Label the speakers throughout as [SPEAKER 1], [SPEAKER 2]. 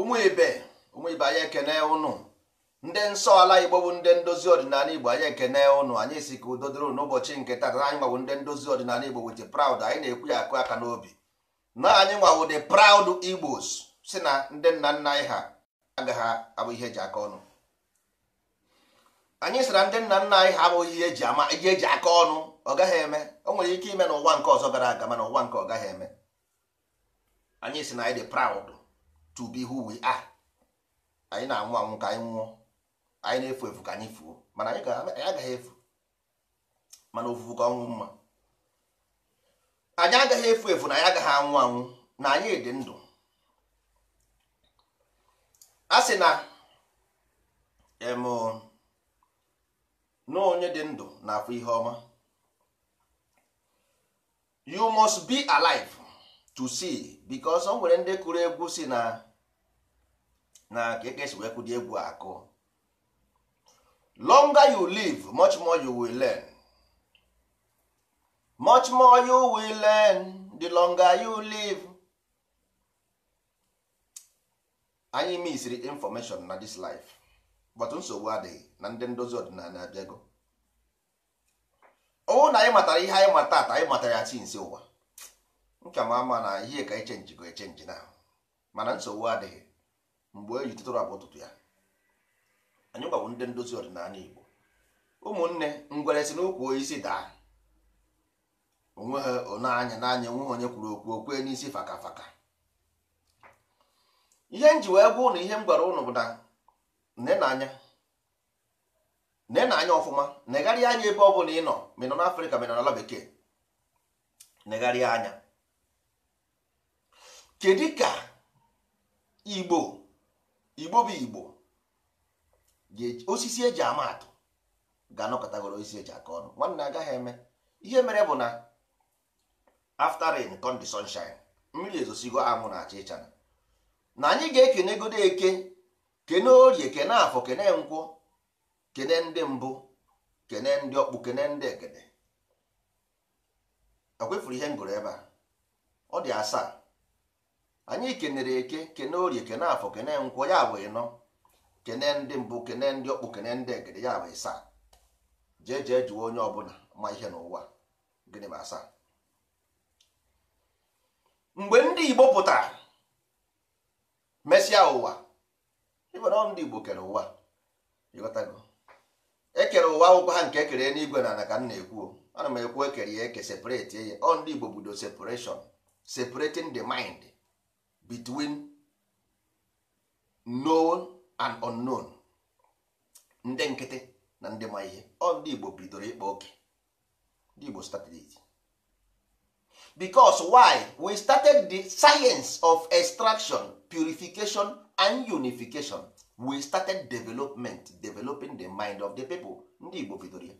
[SPEAKER 1] ụmụ ibe ụmụ anyị ekene ụnụ ndị nsọ ala igbo bụ ndị ndozi ọdịnala igbo anyị ekene ụnụ anyị si ka udo dịrị n'ụbọchị nke taa anyị nwawo ndị ndozi ọdịnala igbo wit praud anyị na-ekwu ya akụ aka n'obi na anyị nwawo the proud igbos si na ndị nna nna anyị ha agaghị abụ ihe eji aka ọnụ anyị sị na ndị nna nna anyị ha abụghị ihe eji ama ihe eji aka ọnụ ọ gaghị eme o nwere ike ime na ụwa nke ọzọ gara aga mana ụwa nke ọ gaghị eme anyị sị na anyị dị proud to be who we are anyị na-anwụ anwụ ka anyị nwụọ anyị na-efu efu ka anyị fuo mana anyị agaghị efu mana ofufu ka ọnwụ mma anyị agaghị efu efu na anyị agaghị anwụ anwụ na anyị dị ndụ a sị na na onye dị ndụ na afọ ihe ọma you must be alive to see because o nwere ndị kụrụ egwu si na na ka esi e wee kwụdị egwu akụ longer you live much more you will learn much more you will learn the longer you live anyị misiri information na this life but nsogbu adịghị na ndị ndozi ọdịnala abịago ọwụ na anyị matara ihe anyị mata ata anyị matara ya chi nsi ụwa nka ma ama na ihe ka echenji go echenji na mana nsogbu adịghị mgbe e tụtụrụ abụ ụtụtụ ya anyị gbagbụ ndị ndozi ọdịnala Igbo ụmụnne ngwere si n'okwu isi daa onwe ha onanya n'anya onwe ha onye kwuru okwu isi faka faka ihe m ji wee gwa ụnụ ihe m gwara ụnụ bụ na na nenanya ọfụma negharịa anya ebe ọ bụla ị nọ ma ị nọ n'Afrịka ma ị nọ n'ala bekee negharịa anya kedu ka Igbo igbo bụ igbo osisi eji ama atụ ga-anọkọtagoro osisi eji aka ọnụ nwanne agaghị eme ihe mere bụ na after rain come the sunshine mmiri ezosigo anwụ na acha ịchara na anyị ga-ekenegodo eke kene orie kene afọ kene nkwụ kene ndị mbụ kene ndị ọkpụ kene ndị ekene e kwefuru ihe m ebe a ọ dị asaa anyị kenere eke kene orie kene afọ kene nkwụ ya bụ ịnọ kene ndị mbụ kene ndị ọkpụ kene ndị egede ya bụ ịsaa jee jee jụọ onye ọbụla ma ihe n'ụwa gịnị bụ asaa mgbe ndị igbo pụtara mesịa ụwa ịbụna ndị igbo kere ụwa ịghọtago ekere ụwa akwụkwọ ha nke ekere n'igwe na ana ka m na-ekwu ana m ekwu ekere ya eke separate ya ọ ndị igbo bido separation separating the mind between known and unknown ndị nkịtị na ndị ma ihe ọ ndị Igbo bidoro ịkpa oke ndị Igbo started it because why we started the science of extraction purification and unification we started development developing the mind of the people ndị Igbo bidoro ya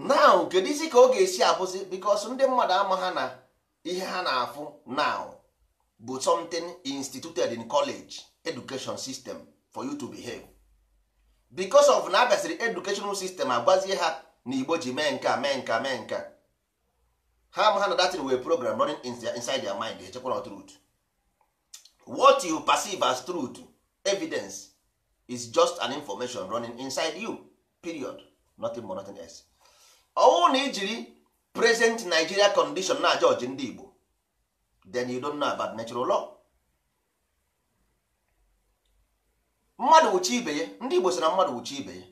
[SPEAKER 1] now kedu isi ka ọ ga-esi abụzi because ndị mmadụ ama ha na ihe ha na-afụ now bụ something instituted in college education system for you to behave because of na abịasịrị educational system agwazie ha na igbo ji mee nka mee nka mee nka ha ama ha na datin wee program running inside their mind echekwa na truth what you perceive as truth evidence is just an information running inside you period nothing more nothing else ọnwụ na ijiri present Nigeria condition na judge ndị Igbo then you don't know about natural law mmadụ wuchi ibe ya ndị Igbo sị na mmadụ wuchi ibe ya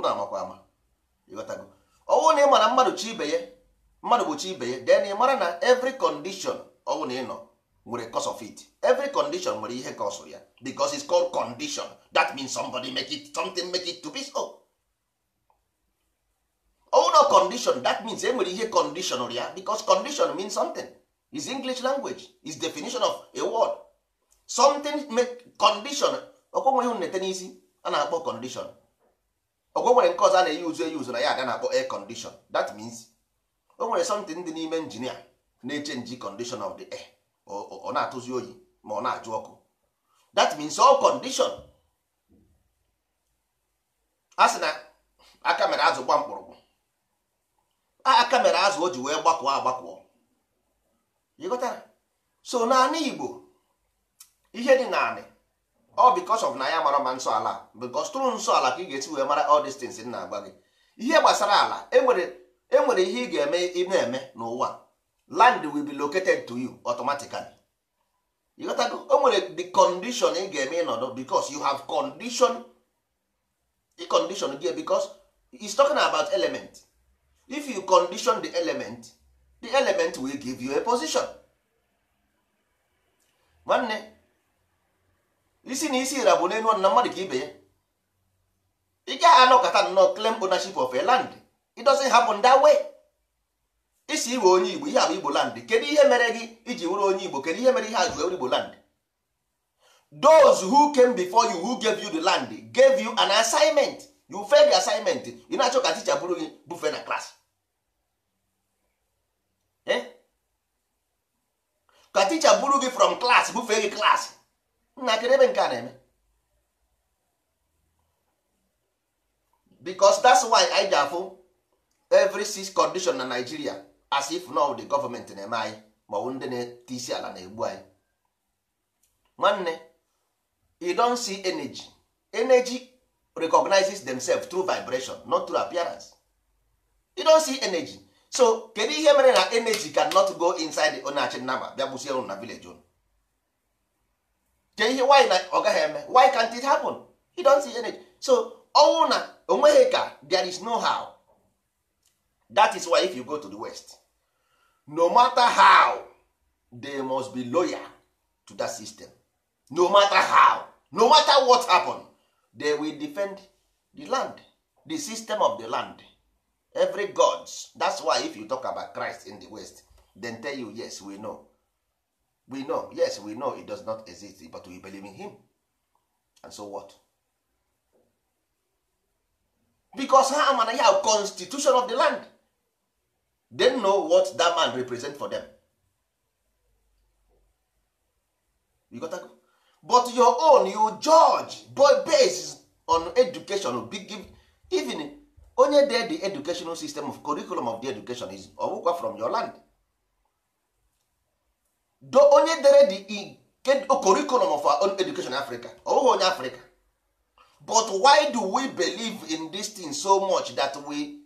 [SPEAKER 1] ama amakwa ama ịghọtago ọnwụ na ị mara mmadụ chi ibe ya mmadụ wuchi ibe ya then ị mara na every condition ọnwụ na ị nọ nwere cause of it every condition nwere ihe cause ya because it's called condition that means somebody make it something make it to be so ụlọ condition that means e nwere ihe condition ya because condition means something is english language is definition of a word something make condition ọkwọ nwere nete nnete n'isi a na-akpọ condition ọkwọ nwere nke ọzọ a na-eyi uzu eyi uzu na ya aga na-akpọ air condition that means o nwere something dị n'ime injinia na-eche nji condition of the air ọ na-atụzi oyi ma ọ na-ajụ ọkụ that means all condition a sị na aka mere azụ mkpụrụgwụ aka mere azụ o ji wee gbakọọ agbakọọ ịghọtara so naanị igbo ihe dị naanị ọ bikos of na ya mara ma nsọ ala bikos tụrụ nsọ ala ka ị ga-esi wee mara ọ these things na agwa gị ihe gbasara ala enwere e ihe ị ga-eme ị na-eme n'ụwa land will be located to you automatically ịghọtago o nwere the condition ị ga-eme ịnọdụ bikos you have condition condition gị bikos is talking about element if you condition the element the element will give you a position nwanne isi na isi ira bụ n'elu ọnụ mmadụ ka ibe ya ị gaghị anọkọta nnọọ claim ownership of a land it doesn't happen that way isi iwe onye igbo ihe abụ igbo land kedu ihe mere gị iji wụrụ onye igbo kedu ihe mere ihe a jụ igbo land those who came before you who gave you the land gave you an assignment you fail the assignment ị na-achọ ka teacher bụrụ gị bufe na klas eh? ka teacher bụrụ gị from class bufe gị klas nna kedu ebe nke a na-eme because that's why anyị ji afụ every six condition na Nigeria as if now the government na-eme anyị ma ọ bụ ndị na-ete isi ala na-egbu anyị nwanne you don see energy energy recognizes themselves through vibration not through appearance you don't see energy so kedu ihe mere na energy cannot go inside the onachi nama bịa gbusie unu na village unu ke ihe why na ọ gaghị eme why can't it happen you don't see energy so ọnwụ na onweghị ka there is no how that is why if you go to the west no matter how they must be loyal to that system no matter how no matter what happened. they will defend the land the system of the land every gods that's why if you talk about christ in the west then tell you yes we know we know yes we know it does not exist but we believe in him and so what because ha amana ya constitution of the land they know what that man represent for them you got to go but your own you judge based on education even onye dee the educational system of curriculum of the education is ọbụkwa from your land do onye dere the curriculum of our own education in Africa ọbụghị onye Africa but why do we believe in this thing so much that we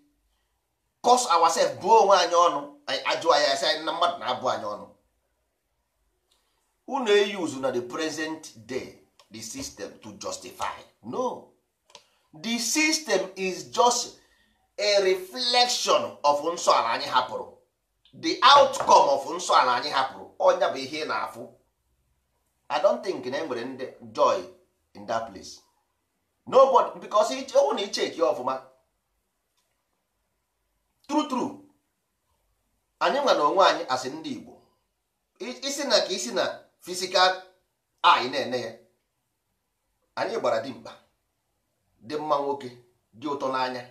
[SPEAKER 1] cause ourselves buo onwe anyị ọnụ anyị ajụọ ya sị na mmadụ na-abụ anyị ọnụ unu eyuzu na the present day the system to justify no the system is just a reflection of nso ala anyị hapụrụ the outcome of nso ala anyị hapụrụ onya bụ ihe na-afụ i don't think na enwere ndị joy in that place nobody because ọwụ na icheki ọfụma true true anyị nwa onwe anyị as ndị Igbo isi na ka isi na physical eye na-ene ya anyị gbara dimkpa dị mma nwoke dị ụtọ n'anya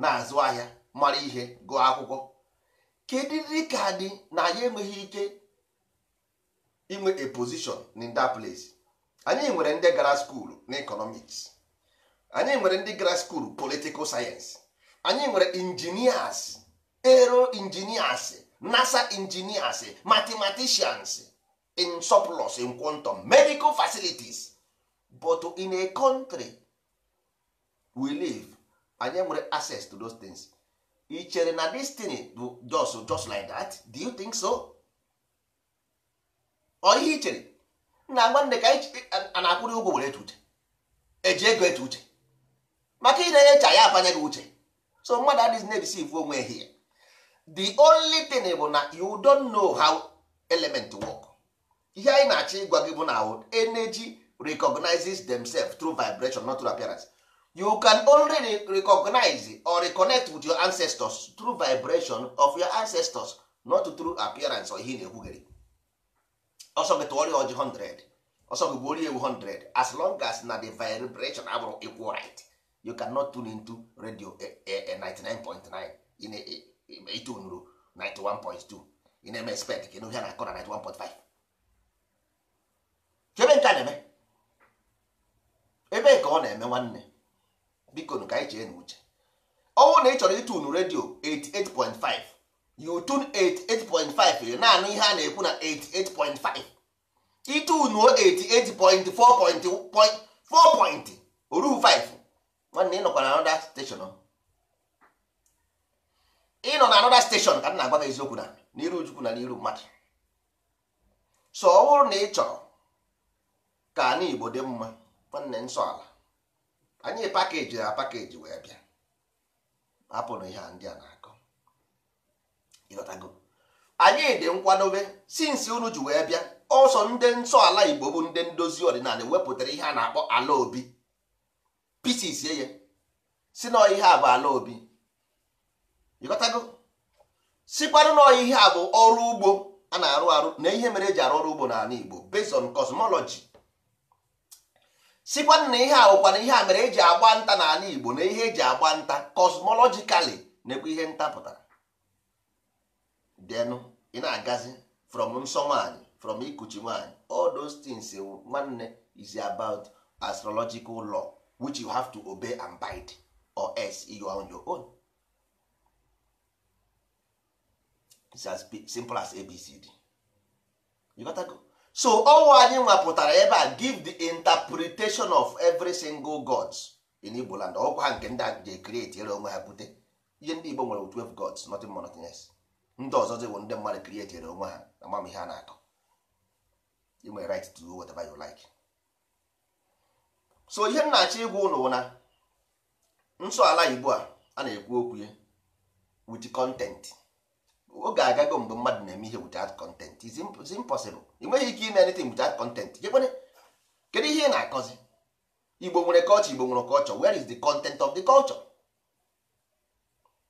[SPEAKER 1] na-azụ ahịa mara ihe gụọ akwụkwọ kedịrị ka dị na anyị enweghị ike inwe a position in that place anyị nwere ndị gara skuulu na economics anyị nwere ndị gara skuulu political science anyị nwere engineers ero engineers nasa engineers mathematicians in surplus in quantum medical facilities but in a country we live anyị nwere access to those things ị chere na destiny just just like that do you think so ọ ihe na nwanne ka a na-akwụrị ụgwọ were etu uche eji ego etu uche maka ị na-enyecha ya afanye gị uche so mmadụ adịghị na-ebisivu onwe ya the only thing bụ na you don't know how element work ihe anyị na-achọ ịgwa gị bụ na energy recognizes themselves through vibration not through appearance you can only recognize or reconnect with your ancestors through vibration of your ancestors not through appearance or ihe na-ekwugheri ọsọ gị Ojii ọjị 100 ọsọ gị gbuorie ewu 100 as long as na the vibration abụrụ equal right you cannot tune into radio 99.9 in na-etunuru 91.2 in na-eme sped ka ịnụ ihe na 91.5 ebe nke a na-eme ebe ka ọ na-eme nwanne biko ka anyị chee n'uche ọnwụ na ị chọrọ ịtụnụ redio 88.5 you tune 88.5 naanị ihe a na-ekwu na 88.5 ịtụnụ 88.4.4 oruhu 5 nwanne ị nọkwa na anoda steshọn ị nọ na anoda steshọn ka m na-agwa gị eziokwu na n'iru Chukwu na n'iru mmadụ so ọ bụrụ na ị chọrọ ka ana Igbo dị mma nwanne nsọ ala anyị pakeji na pakeji wee bịa hapụrụ ihe ndị a na-akọ ịghọtago anyị dị nkwadobe sinsi unu ji wee bịa ọsọ ndị nsọ ala Igbo bụ ndị ndozi ọdịnala wepụtara ihe a na-akpọ ala obi pisis ya si na ihe a bụ ala obi ịghọtago sikwanụ na ihe a bụ ọrụ ugbo a na-arụ arụ na ihe mere eji arụ ọrụ ugbo n'ala Igbo based on cosmology sikwa na ihe a bụkwa ihe a mere eji agba nta n'ala Igbo na ihe eji agba nta cosmologically na-ekwe ihe nta pụtara denụ ị na-agazi from nsọ nwanyị from ikuchi nwanyị all those things nwanne is about astrological law which you have to obey and bide or else you are on your own it's as simple as ABCD you gotta go. so ọnwa anyị nwapụtara ebe a give the interpretation of every single god in Igbo land ọkwa ha nke ndị a ji create ere onwe ha bute ihe ndị Igbo nwere 12 gods nothing more nothing less ndị ọzọ bụ ndị mmadụ create ere onwe ha na ihe a na-akọ you right to do whatever you like so ihe m na-achọ ịgwa ụnụ na nsọ ala Igbo a a na-ekwu okwu ya with content oge agago mgbe mmadụ na-eme ihe without content is impossible ị nweghị ike ime anything without content jekwene kedu ihe ị na-akọzi igbo nwere culture igbo nwere culture where is the content of the culture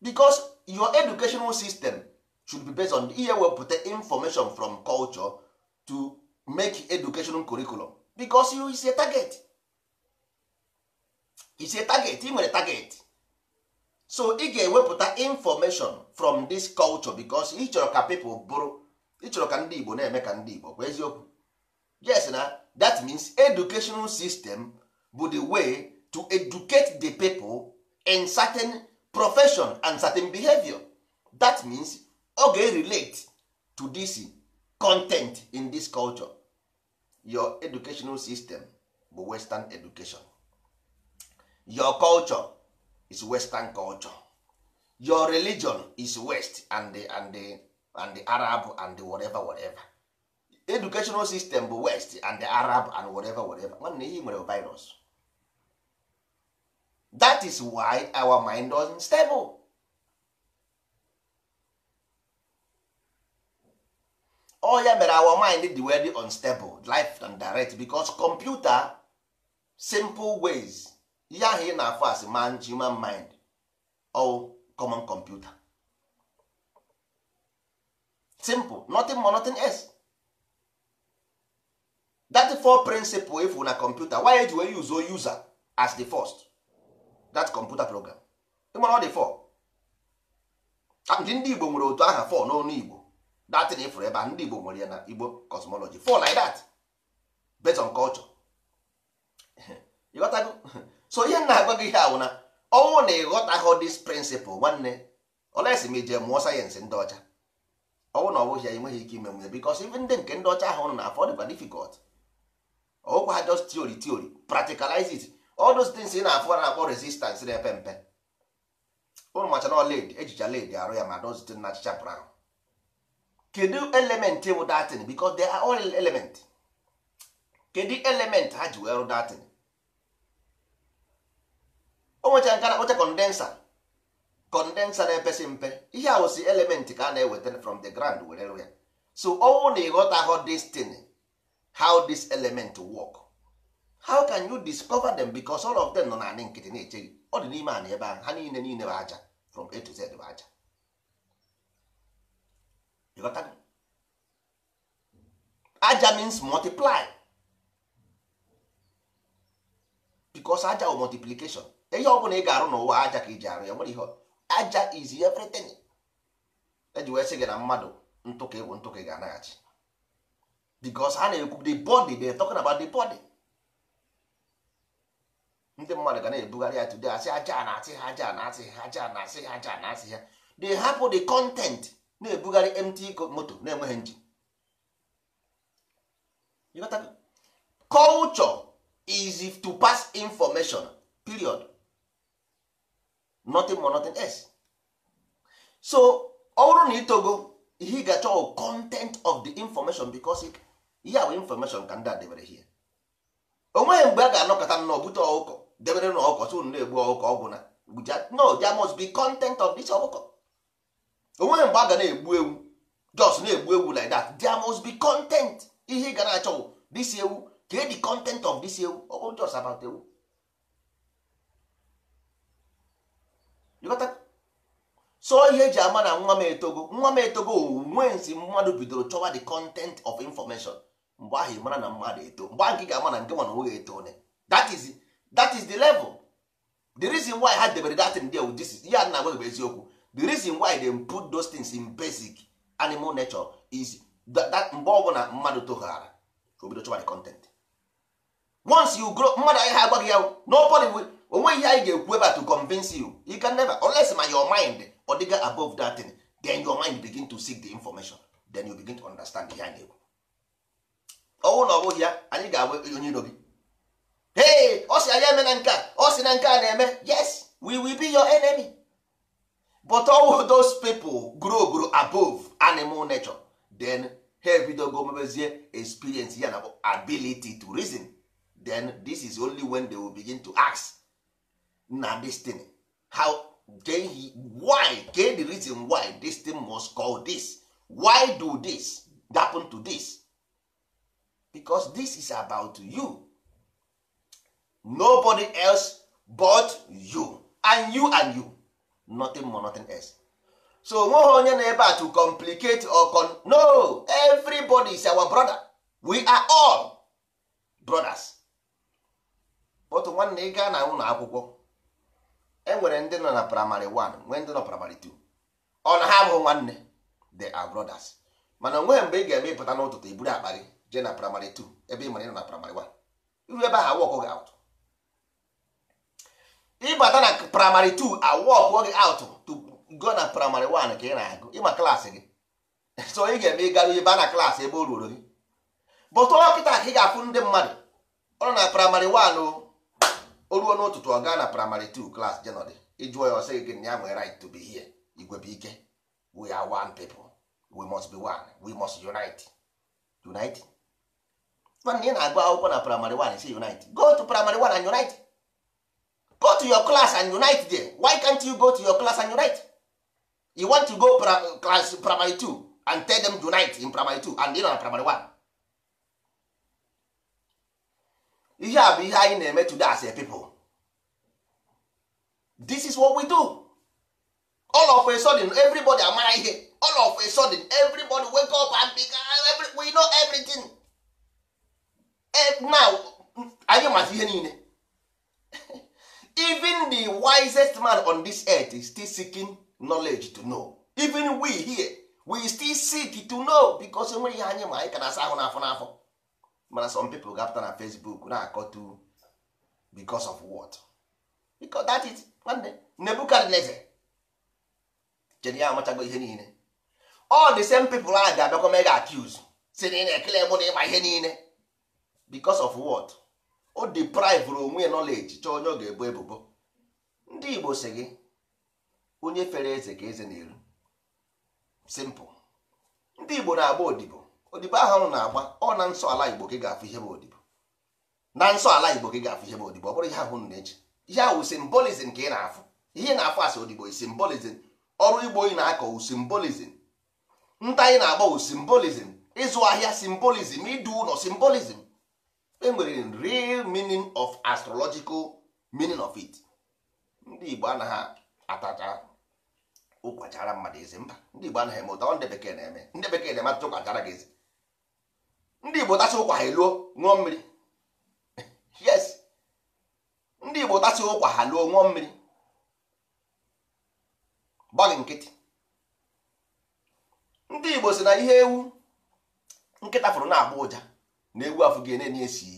[SPEAKER 1] because your educational system should be based on ihe wepụta information from culture to make educational curriculum because you is a target is a target ị nwere target so ị ga-ewepụta information from this culture because ị chọrọ ka people bụrụ ị ka ndị Igbo na-eme ka ndị Igbo yes na that means educational system bụ the way to educate the pipo in certain profession and certain behavior that means ọ ga-relate to this content in this culture your educational system bụ western education your culture is western culture your religion is west and the, and the, and the arab and the whatever whatever educational system bụ west and the arab and whatever whatever nwanne ihe nwere virus that is why our mind don stable all oh, ya mere our mind dị very unstable life and direct because computer simple ways ihe ahụ ị na-afụ asị man human mind or common computer simple nothing more nothing else that four principle ifu na computer why eji wee use o oh, user as the first that computer program ịmara ọ dị four ah, ndị igbo nwere otu aha fọ n'ọnụ igbo datin ifụrụ ebe a ndị igbo nwere ya na igbo cosmology fọ like that based on culture ịghọtago so ihe na-agwa gị ihe awụna ọnwụ na ịghọtaghị dis prịnsịpụl nwanne olesi ma ije mụọ sayensị ndị ọcha ọnwụ na ọbụghị ya enweghị ike ime nwunye bikos ive ndị nke ndị ọcha ahụ na afọ dịkwa difikọlt ọgwụkwa ha just tiori tiori practicalize it all those things na-afụ na-akpọ resistance na-epe mpe ụnụ macha na led ejicha led arụ ya ma dozite na achịcha brown kedu element bụ datin bikos they are all element kedu element ha ji wee rụ datin o nwecha nke na kondensa condensa condensa na-epesị mpe ihe a wụsị element ka a na-eweta from the ground were ya so ọnwụ na ịghọta how this thing how this element work how can you discover them because all of them nọ naanị nkịtị na-eche gị ọ dị n'ime ana ebe ahụ ha niile niile bụ aja from a to z bụ aja ịghọta aja means multiply because aja bụ multiplication ihe ọ bụla ị ga-arụ n'ụwa aja ka iji arụ ya nwere ihe aja izi everything eji wee sị gị na mmadụ ntụka ịwụ ntụka ga-anaghachi because ha na-ekwu the body they talking about the body ndị mmadụ ga na-ebugharị ya today asị aja na-asị ha aja na-asị ha aja na-asị ha aja na-asị ha they hapụ the content na-ebugharị mt moto na-enweghị nji culture is to pass information period nothing more nothing else so ọ bụrụ na itogo ihe ị ga-achọ content of the information because ihe bụ information ka ndị a debere here onweghị mgbe a ga-anọkọta nnọọ bute ọkụkọ debere na ọkụkọ tụ na-egbu ọkụkọ ọgwụ na no there must be content of this ọkụkọ onweghị mgbe a ga na-egbu ewu just na-egbu ewu like that there must be content ihe ị ga na-achọ this ewu ka the content of this ewu ọ bụ just about ewu so ihe eji ama na nwa m etogo nwa m etogo onwe nsi mmadụ bidoro chọwa the content of information mgbe ahụ mara na mmadụ eto mgbe ahụ gị ga-ama na nke nwana nwoge eto ne that is that is the level the reason why ha debere datin dia this ihe a na-agwa bụ eziokwu the reason why they put those things in basic animal nature is that mgbe ọbụla mmadụ toghara ka obido chọwa the content once you grow mmadụ anyị ha agwaghị ya nobody will onwe ihe anyị ga-ekwu ebe to convince you you can never unless ma your mind ọ dịga above that thing then your mind begin to seek the information then you begin to understand ihe a na-ekwu ọnwụ na ọ bụghị ya anyị ga-agba onye iro gị hey ọ sị anyị eme na nke a ọ sị na nke a na-eme yes we will be your enemy but all those people grow grow above animal nature then ha ebidogo mebezie experience ya na ability to reason then this is only when they will begin to ask na destiny how then he why get the reason why this thing must call this why do this happen to this because this is about you nobody else but you and you and you nothing more nothing else so nweghị onye na ebe a to complicate or con no everybody is our brother we are all brothers but nwanne ị gaa na ụlọ akwụkwọ enwere ndị nọ na praịmarị 1 nwee ndị nọ praịmarị 2 ọ na ha bụ nwanne they are brothers mana onwe mgbe ị ga-eme ịpụta n'ụtụtụ iburu akpa jee na praịmarị 2 ebe ị mara ịnọ na praịmarị 1 iru ebe ahụ gị out ịbata na praịmarị 2 awọkọ gị out to go na praịmarị 1 ka ị na-agụ ịma klaasị gị so ị ga-eme ịgarụ ebe a na klaasị ebe o ruoro gị bụtụ ọkịta ka ị ga-afụ ndị mmadụ ọ nọ na praịmarị 1 o o ruo n'ụtụtụ ọ gaa na praịmarị 2 klas jenọdị ịjụọ ya ọsị gị ya nwere right to be here igwe ike we are one people we must be one we must unite unite nwanne ị na-agụ akwụkwọ na praịmarị 1 si unite go to praịmarị 1 and unite go to your class and unite there why can't you go to your class and unite you want to go class primary 2 and tell them unite in primary 2 and ị na primary 1 ihe a bụ ihe anyị na-eme today as a people this is what we do all of a sudden everybody amara ihe all of a sudden everybody wake up and be ah, every, we know everything eh, now anyị mata ihe niile even the wisest man on this earth is still seeking knowledge to know even we here we still seek to know because enweghị ihe anyị ma anyị ka asa ahụ n'afọ n'afọ mana some pipo ga-apụta na Facebook na-akọtu because of what because that is nwanne Nebukadneza jedi ya amachago ihe niile all the same people a ga-abịakwa mega accuse si na ị na-ekele mụ na ịma ihe niile because of what o deprive onwe knowledge chọọ onye ọ ga-ebu ebubo ndị Igbo si gị onye fere eze ka eze na-eru simple ndị Igbo na-agba odibo odibo ahụ ọrụ na-agba ọ na nsọ ala igbo gị ga-afụ ihe bụ odibo na nsọ ala igbo gị ga-afụ ihe bụ odibo ọ bụrụ ihe ahụ unu na-eji ihe ahụ simbolizm ka ị na-afụ ihe na-afụ asị odibo simbolizm ọrụ igbo ị na-akọ simbolizm nta ị na-agba simbolizm ịzụ ahịa simbolizm ịdụ ụlọ simbolizm enwere real meaning of astrological meaning of it ndị igbo anaghị atacha ụkwachara mmadụ eze mba ndị igbo anaghị eme ụta ndị bekee na-eme ndị bekee na-eme atụtụ ụkwachara gị eze ndị igbo tasị ụkwa ha eluo ṅụọ mmiri yes ndị igbo tasị ụkwa ha luo ṅụọ mmiri gbaghị nkịtị ndị igbo si na ihe ewu nkịta fụrụ na-agba ụja na ewu afụ gị enye esi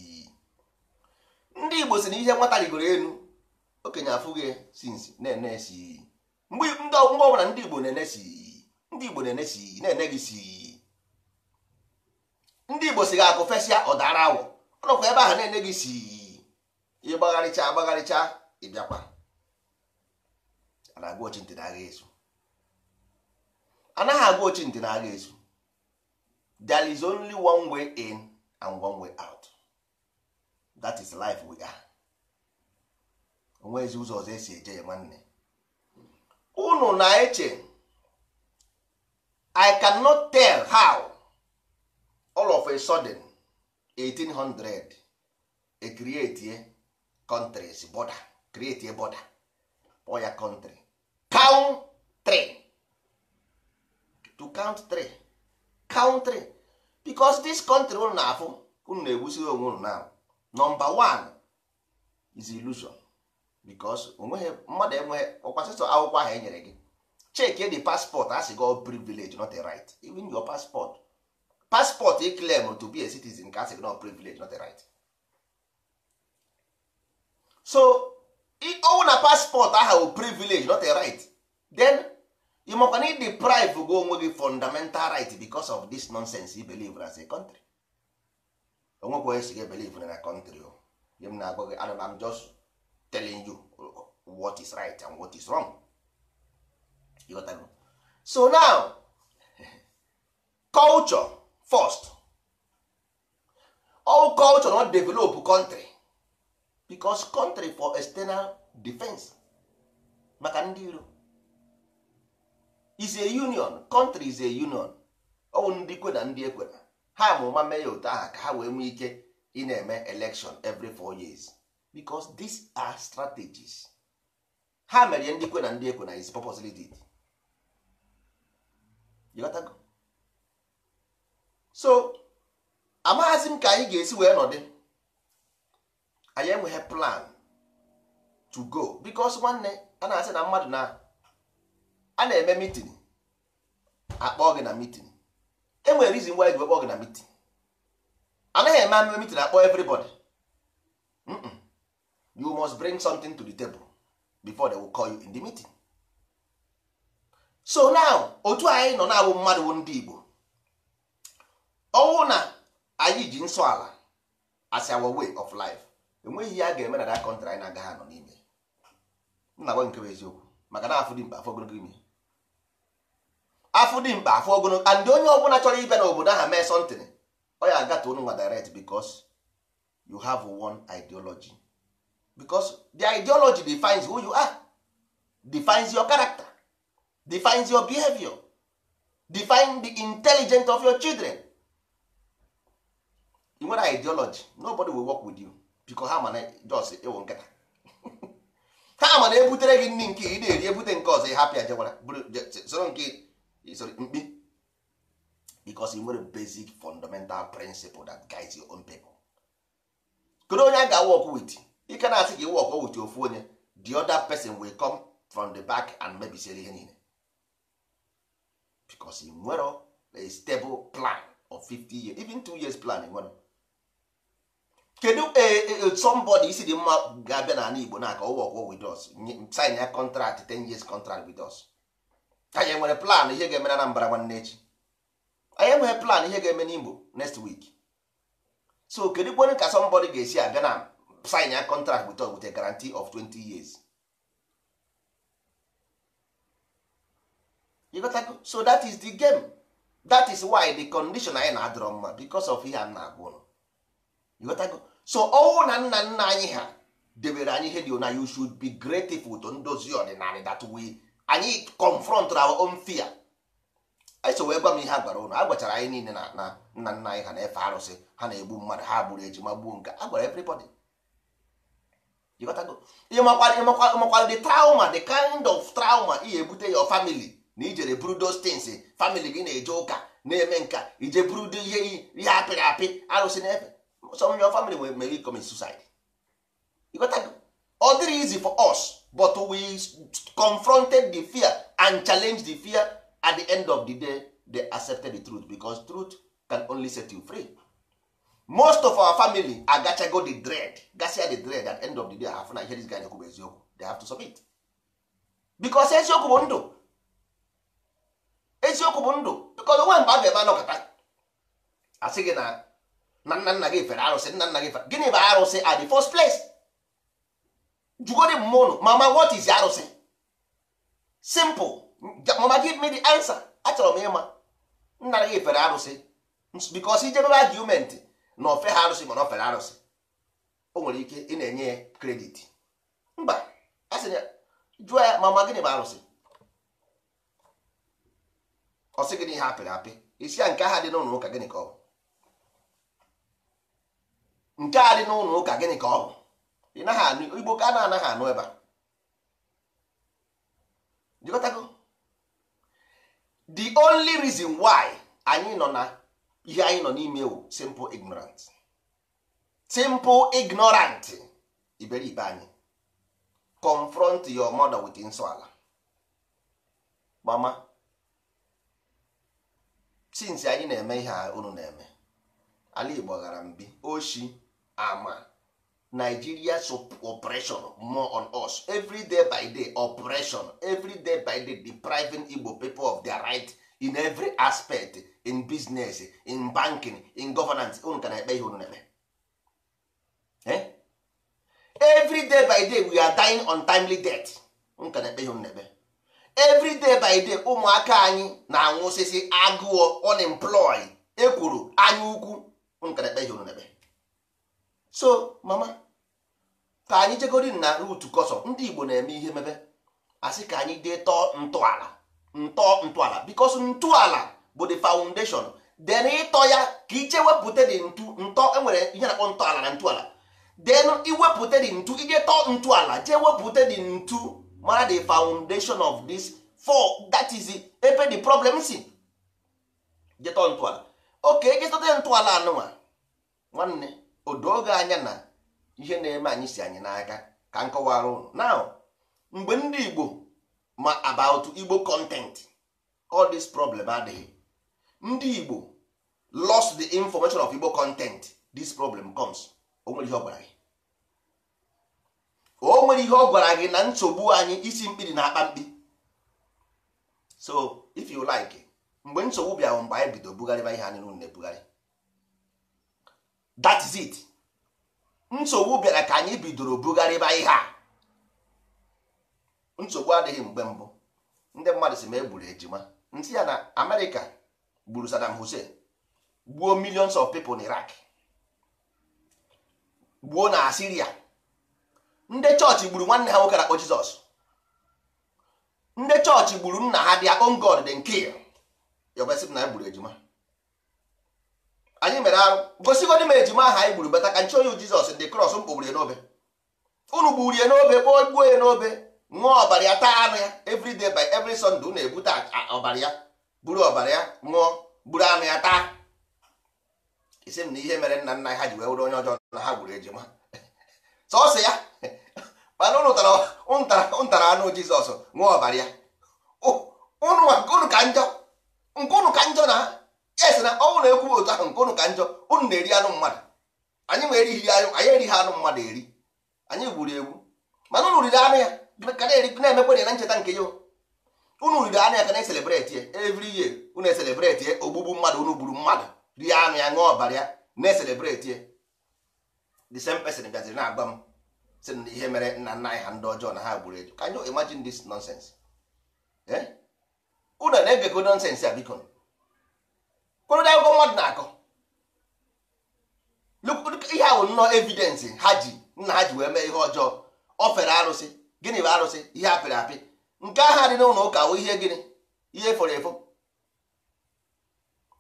[SPEAKER 1] ndị igbo si na ihe nwata rigoro elu okenye afụghị gị sinsi na-ene esi mgbe ọbụla ndị igbo na-enesi ndị igbo na-enesi na-ene gị si ndị igbo si ga-akụ fesịa ọdara awọ ọnọkwa ebe ahụ na-enye gị si ịgbagharịcha agbagharịcha ịbịakwa anaghị agụ ochi ntị na agha ezu there is only one way in and one way out that is life we are ezi ụzọ ọzọ esi eje ya nwanne unu na-eche i cannot tell how all of a sudden 1800 e create countries border create a border for your country count three to count three count three because this country unu na-afụ unu na-egbusiri onwe unu now number one is illusion because onweghị mmadụ enweghị ọkwasịsọ akwụkwọ ahụ e nyere gị check the passport a sị gị privilege not a right even your passport paspọtụ e claim to be a citizen ka asị no privilege not a right so ọwụ na passport aha wụ privilege not a right then ị makwa na deprive go onwe gị fundamental right because of this nonsense you believe as a country onwekwa esi gị believe na country o ihe m na-agwa gị ana m just telling you what is right and what is wrong you got so now culture first all culture not develop country because country for external defense maka ndị iro is a union country is a union ọwụ ndị kwe na ndị ekwena ha amụma mee ya otu aha ka ha wee nwee ike ị na-eme election every four years because these are strategies ha mere ndị kwe na ndị ekwena is purposely did you so amaghazi m ka anyị ga-esi wee nọdị anyị enweghị plan to go because nwanne a na-asị na mmadụ na a na-eme meeting akpọ gị na meeting enwere reason why ji kpọọ gị na meeting anaghị eme ameme meeting akpọ everybody you must bring something to the table before they will call you in the meeting so now otu anyị nọ na-abụ mmadụ ndị Igbo ọnwụ na anyị ji nsọ ala as our way of life enweghị ihe a ga-eme na that country anyị na-agaghị nọ n'ime nna gwa nke bụ eziokwu maka na afụ dị mkpa afọ ogologo ime afọ dị mkpa afọ ogologo and onye ọbụla chọrọ na obodo aha mee sọntịn ọ ya agata unu nwa direct becos you have one ideology becos the ideology defines who you are defines your character defines your behavior define the intelligence of your children ị nwere ideology nobody will work with you biko ha mana jos ịwụ nkịta ha mana ebutere gị nri nke ị na-eri ebute nke ọzọ ịhapịa jewara soro nke mkpi because ị e nwere basic fundamental principle that guides your own people kedu onye a ga-work wit ike na-asị ka ị work with ofu onye the other person will come from the back and mebisiere ihe niile because ị e nwere a stable plan of 50 years even two years plan e nwere kedu eh, eh, eh, somebody isi dị mma ga-abịa n'ala Igbo na-aka ụwa ọgwụ with us sign ya contract 10 years contract with us anyị nwere plan ihe ga-eme na Anambra nwanne echi anyị enweghị plan ihe ga-eme n'Igbo next week so kedu kwere ka somebody ga-esi abịa na sign ya contract with us with a guarantee of 20 years so that is the game that is why the condition anyị na-adọrọ mma because of ihe a na-agwụ so ọnwụ na nna nna anyị ha debere anyị ihe dị na you should be grateful to ndozi ọdịnala that way anyị confront our own fear anyị so wee gwa m ihe a gwara ụnụ a gwachara anyị niile na na nna nna anyị ha na-efe arụsị ha na-egbu mmadụ ha gburu ejima gbuo nke a gwara everybody ịmakwara the trauma the kind of trauma ị ebute your family na ijere buru those things eh? family gị na-eje ụka na-eme nka ije buru ihe ihe apịrị apị arụsị na-efe some of your family will may commit suicide you got that? ọ is easy for us but we confronted the fear and challenged the fear at the end of the day they accepted the truth because truth can only set you free most of our family agachago the dread gasia the dread at the end of the day afụ na ihe dis guy na-ekwu bụ eziokwu they have to submit because eziokwu bụ ndụ eziokwu bụ ndụ because onwe mgbe a ga-eme anọkọta asị gị na na nna nna gị fere arụsị nna nna gị fere gịnị bụ arụsị at the first place jugodi mmụọ ụnụ mama what is arụsị simple mama give me the answer achọrọ m ịma nna gị fere arụsị because ijebebe argument na ofe ha arụsị mana ofere arụsị o nwere ike ị na-enye ya kredit mba a ya jụọ ya mama gịnị bụ arụsị ọ sị gịnị ihe apịrị apị isi ya nke aha dị n'ụlọ ụka gịnị ka ọ bụ nke a dị n'ụlọ ụka gịnị ka ọ bụ ị naghị igbo ka a na-anaghị anụ ebe a jikọtago the only reason why anyị nọ na ihe anyị nọ n'ime ewu simple ignorant simple ignorant iberibe anyị confront your mother with nsọala mama since anyị na-eme ihe a unu na-eme ala igbo ghara mbi oshi ama nigeria operation more on us every day by day operation every day by day depriving igbo people of their right in every aspect in business in banking in governance unu ka na-ekpe ihe unu na-eme eh? every day by day we are dying on timely death unu ka na-ekpe ihe unu na-eme every day by day ụmụaka anyị na-anwụsịsị agụụ unemployed ekwuru anya ukwu unu ka na-ekpe ihe unu na-eme so mama ka anyị jegori na rutu kọsọ ndị igbo na-eme ihe mebe asị ka anyị dee tọọ ntọala ntọ ntọala bikos ntọala bụ the foundation den ịtọ ya ka iche wepụta dị ntu ntọ enwere ihe na-akpọ ntọala na ntọala den iwepụte dị ntu ije tọọ ntọala jee wepụta dị ntu mara the foundation of this for that is ebe the problem si jetọ ntọala oke ejestọta ntọala anụnwa nwanne odo anya na ihe na-eme anyị si anyị n'aka ka nkọwara ụnụ. now mgbe ndị igbo ma about igbo content all this problem adịghị ndị igbo lost the information of igbo content this problem comes o nwere ihe ọ gwara gị o nwere ihe ọ gwara gị na nsogbu anyị isi mkpiri na akpa mkpi so if you like mgbe nsogbu bịara mgbe anyị bido bugharịba ihe anyị na-ebugharị that is it nsogbu bịara ka anyị bidoro bugharịba ihe a nsogbu adịghị mgbe mbụ ndị mmadụ si ma egburu ejima ntị ya na amerịka gburu Saddam Hussein gbuo millions of people na gbuo na Asiria ndị chọọchị gburu nwanne ha nwoke na-akpọ Jizọs ndị chọọchị gburu nna ha dị own God then kill e na egburu ejima anyị mere arụ gosigodi m ejima aha anyị gburu bata ka nchi onye jizọs ndị kros mkpogburu ya n'obe unu gburu ya n'obe kpọọ gbuo ya n'obe ṅụọ ọbara ya taa anụ ya evriday day by every sunday unu ebute ọbara ya buru ọbara ya ṅụọ buru anụ ya taa isi m na ihe mere nna nna ha ji wee wụrụ onye ọjọọ na ha gburu ejima sọsọ ya mana unu tara anụ jizọs ṅụọ ọbara ya oh, unu ka njọ nke unu ka njọ na esi na ọnwụ na-ekwu otu ahụ nke ụnụ ka njọ ụnụ na-eri anụ mmadụ anyị ma erighị ya anyị erighị anụ mmadụ eri anyị gburu egwu mana ụnụ riri anụ ya na-emekwe na ncheta nke ya ụnụ riri anụ ya ka na-eselebreti ya evri ye ụnụ eselebreti ya ogbugbu mmadụ ụnụ gburu mmadụ rie anụ ya ṅụọ ọbara ya na-eselebreti ya the same person bịaziri na-agba m sị na ihe mere nna nna anyị ha ndị ọjọọ na ha gburu eju ka anyị imagine this nonsense ụnụ eh? na-egekọ nonsense ya biko kpọrọ akwụkwọ mmadụ na-akọ ihe ahụ nnọọ evidensị ha ji nna ha ji wee mee ihe ọjọọ ọ fere arụsị gịnị bụ arụsị ihe apịrị apị nke aha dị n'ụlọ ụka bụ ihe gịnị ihe fọrọ efo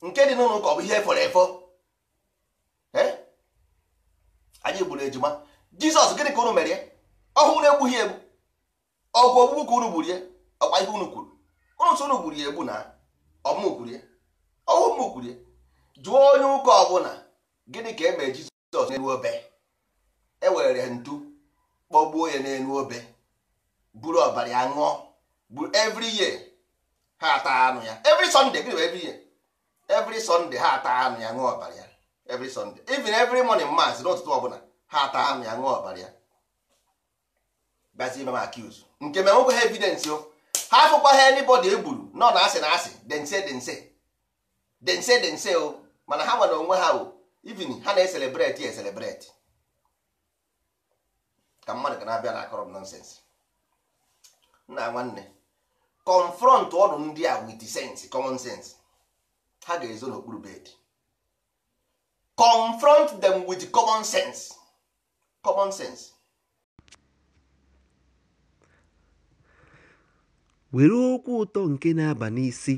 [SPEAKER 1] nke dị n'ụlọ ụka ọ bụ ihe fọrọ efo anyị gburu ejima jizọs gịnị ka unu mere ya ọhụụ na-egbughị egbu ọgwụ ogbugbu ka unu gburu ya ọkwa ihe unu kwuru unu so unu gburu ya egbu na ọmụ gburu ya ọwụ m kwuru jụọ onye ụka ọbụla gịnị ka e mere jizọs n'elu obe e were ntu kpọgbuo ya n'elu obe buru ọbara ya ṅụọ buru evri year ha ata anụ ya evri sọnde gịnị bụ evri year evri sọnde ha ata anụ ya ṅụọ ọbara ya evri sọnde even evri morning mass n'ụtụtụ ọbụla ha ata anụ ya ṅụọ ọbara ya bazie mama accuse nke mere nwoke ha evidence o ha afụkwa ha anybody e gburu nọ na asị na asị dense dense dense dense o mana ha nwere onwe ha o even ha na-eselebreti eselebreti ka mmadụ ga na-abịa na akọrọ nonsens nna nwanne confront ọrụ ndị a with sense common sense ha ga-ezo n'okpuru bed confront them with common sense common sense
[SPEAKER 2] were okwu ụtọ nke na-aba n'isi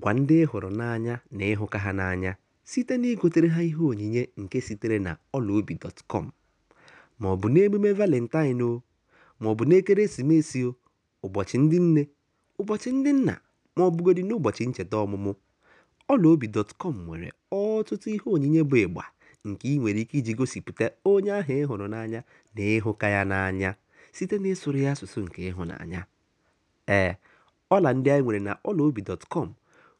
[SPEAKER 2] Gwa ndị ị hụrụ n'anya na ịhụka ha n'anya site na igotere ha ihe onyinye nke sitere na ọlaobi.com ma ọ bụ n'emume Valentine o, ma ọ bụ n'ekeresimesi o, ụbọchị ndị nne, ụbọchị ndị nna ma ọ bụgodị n'ụbọchị ncheta ọmụmụ, dọtkọm nwere ọtụtụ ihe onyinye bụ ịgba nke ị nwere ike iji gosipụta onye ahụ ị hụrụ n'anya na ịhụka ya n'anya site n'ịsụrụ ya asụsụ nke ịhụnanya. Ee, ọla ndị anyị nwere na ọlaobi.com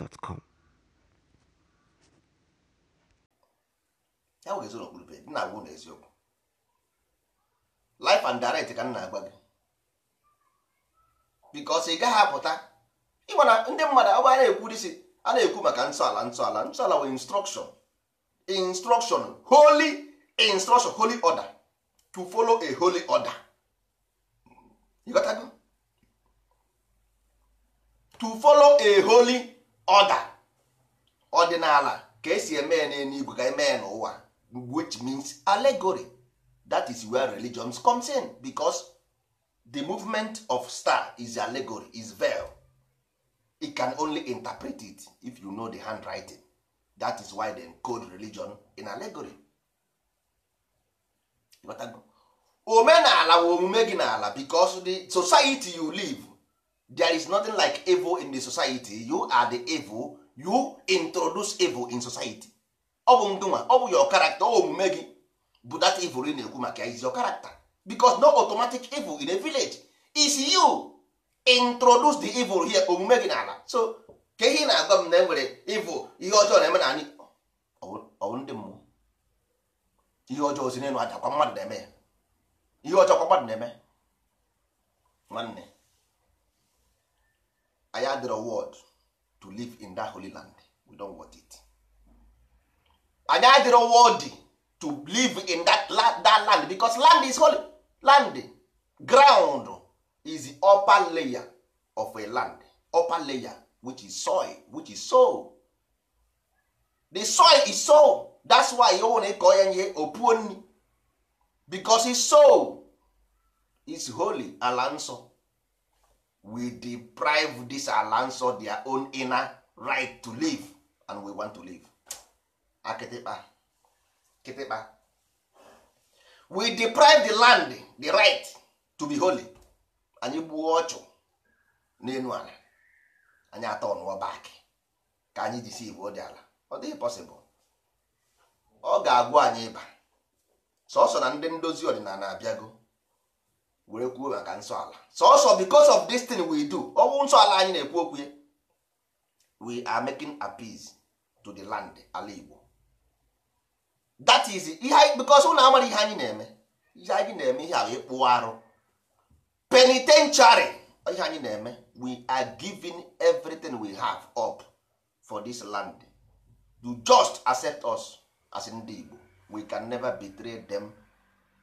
[SPEAKER 2] gmail.com
[SPEAKER 1] ya wụga ezoro okpurube dị na agwụ na eziokwu life and direct ka m na-agwa gị bikos ị gaghị apụta ịgba na ndị mmadụ agba na-ekwu disi a na-ekwu maka nsọala nsọala nsọala wee instruction instruction holy instruction holy order to follow a holy order you got to follow a holy ọda ọdịnala ka esi eme ya n'eluigwe ka eme ya n'ụwa which means allegory that is where religions comes in because the movement of star is allegory is veil it can only interpret it if you know the handwriting that is why they encode religion in allegory omenala bụ omume gị n'ala because the society you live there is nothing like evil in the society you are the evil you introduce evil in society ọ bụ ndụnwa ọ bụ your character ọ omume gị bụ that evil ị na-ekwu maka is your character because no automatic evil in a village is you introduce the evil here omume gị n'ala so ka ihe na-agwa m na enwere evil ihe ọjọọ na-eme na anyị ọwụ ndị mmụọ ihe ọjọọ si n'elu aja kwa mmadụ na-eme ya ihe ọjọọ kwa mmadụ na-eme nwanne anyị adịrọ word to live in that holy land we don't want it anyị adịrọ worthy to live in that land, that land because land is holy land ground is the upper layer of a land upper layer which is soil which is soil the soil is soil that's why you na ịkọ ya ihe opuo nri because his soul is holy ala nsọ we deprive this lands of their own inner right to live and we want to live akịtịkpa ah, kịtịkpa we deprive the land the right to be holy anyị gbuo ọchụ n'elu ala anyị atọ ọnụọ back ka anyị jisi igbo dị ala ọ dịghị possible ọ ga-agwụ anyị ịba sọsọ na ndị ndozi ọdịnala abịago were kwuo maka nsọ ala sọsọ because of this thing we do ọwụ nsọ ala anyị na-ekwu okwu we are making peace to the land ala Igbo that is ihe because ụlọ amara ihe anyị na-eme ihe anyị na-eme ihe ahụ ịkpụ arụ penitentiary ihe anyị na-eme we are giving everything we have up for this land you just accept us as ndị Igbo we can never betray them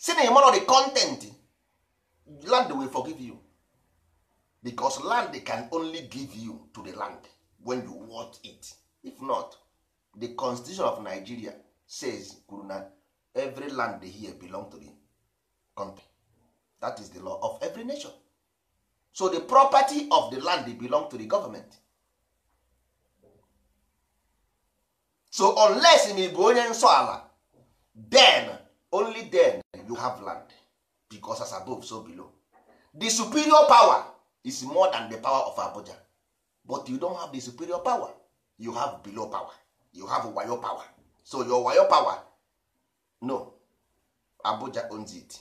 [SPEAKER 1] si na ịmarọ the content land will forgive you because land can only give you to the land when you want it if not the constitution of nigeria says kwuru na every land here belong to the country that is the law of every nation so the property of the land belong to the government so unless ị bụ onye nsọ ala then only then you have land because as above so below the superior power is more than the power of Abuja but you don't have the superior power you have below power you have wayo power so your wayo power no Abuja owns it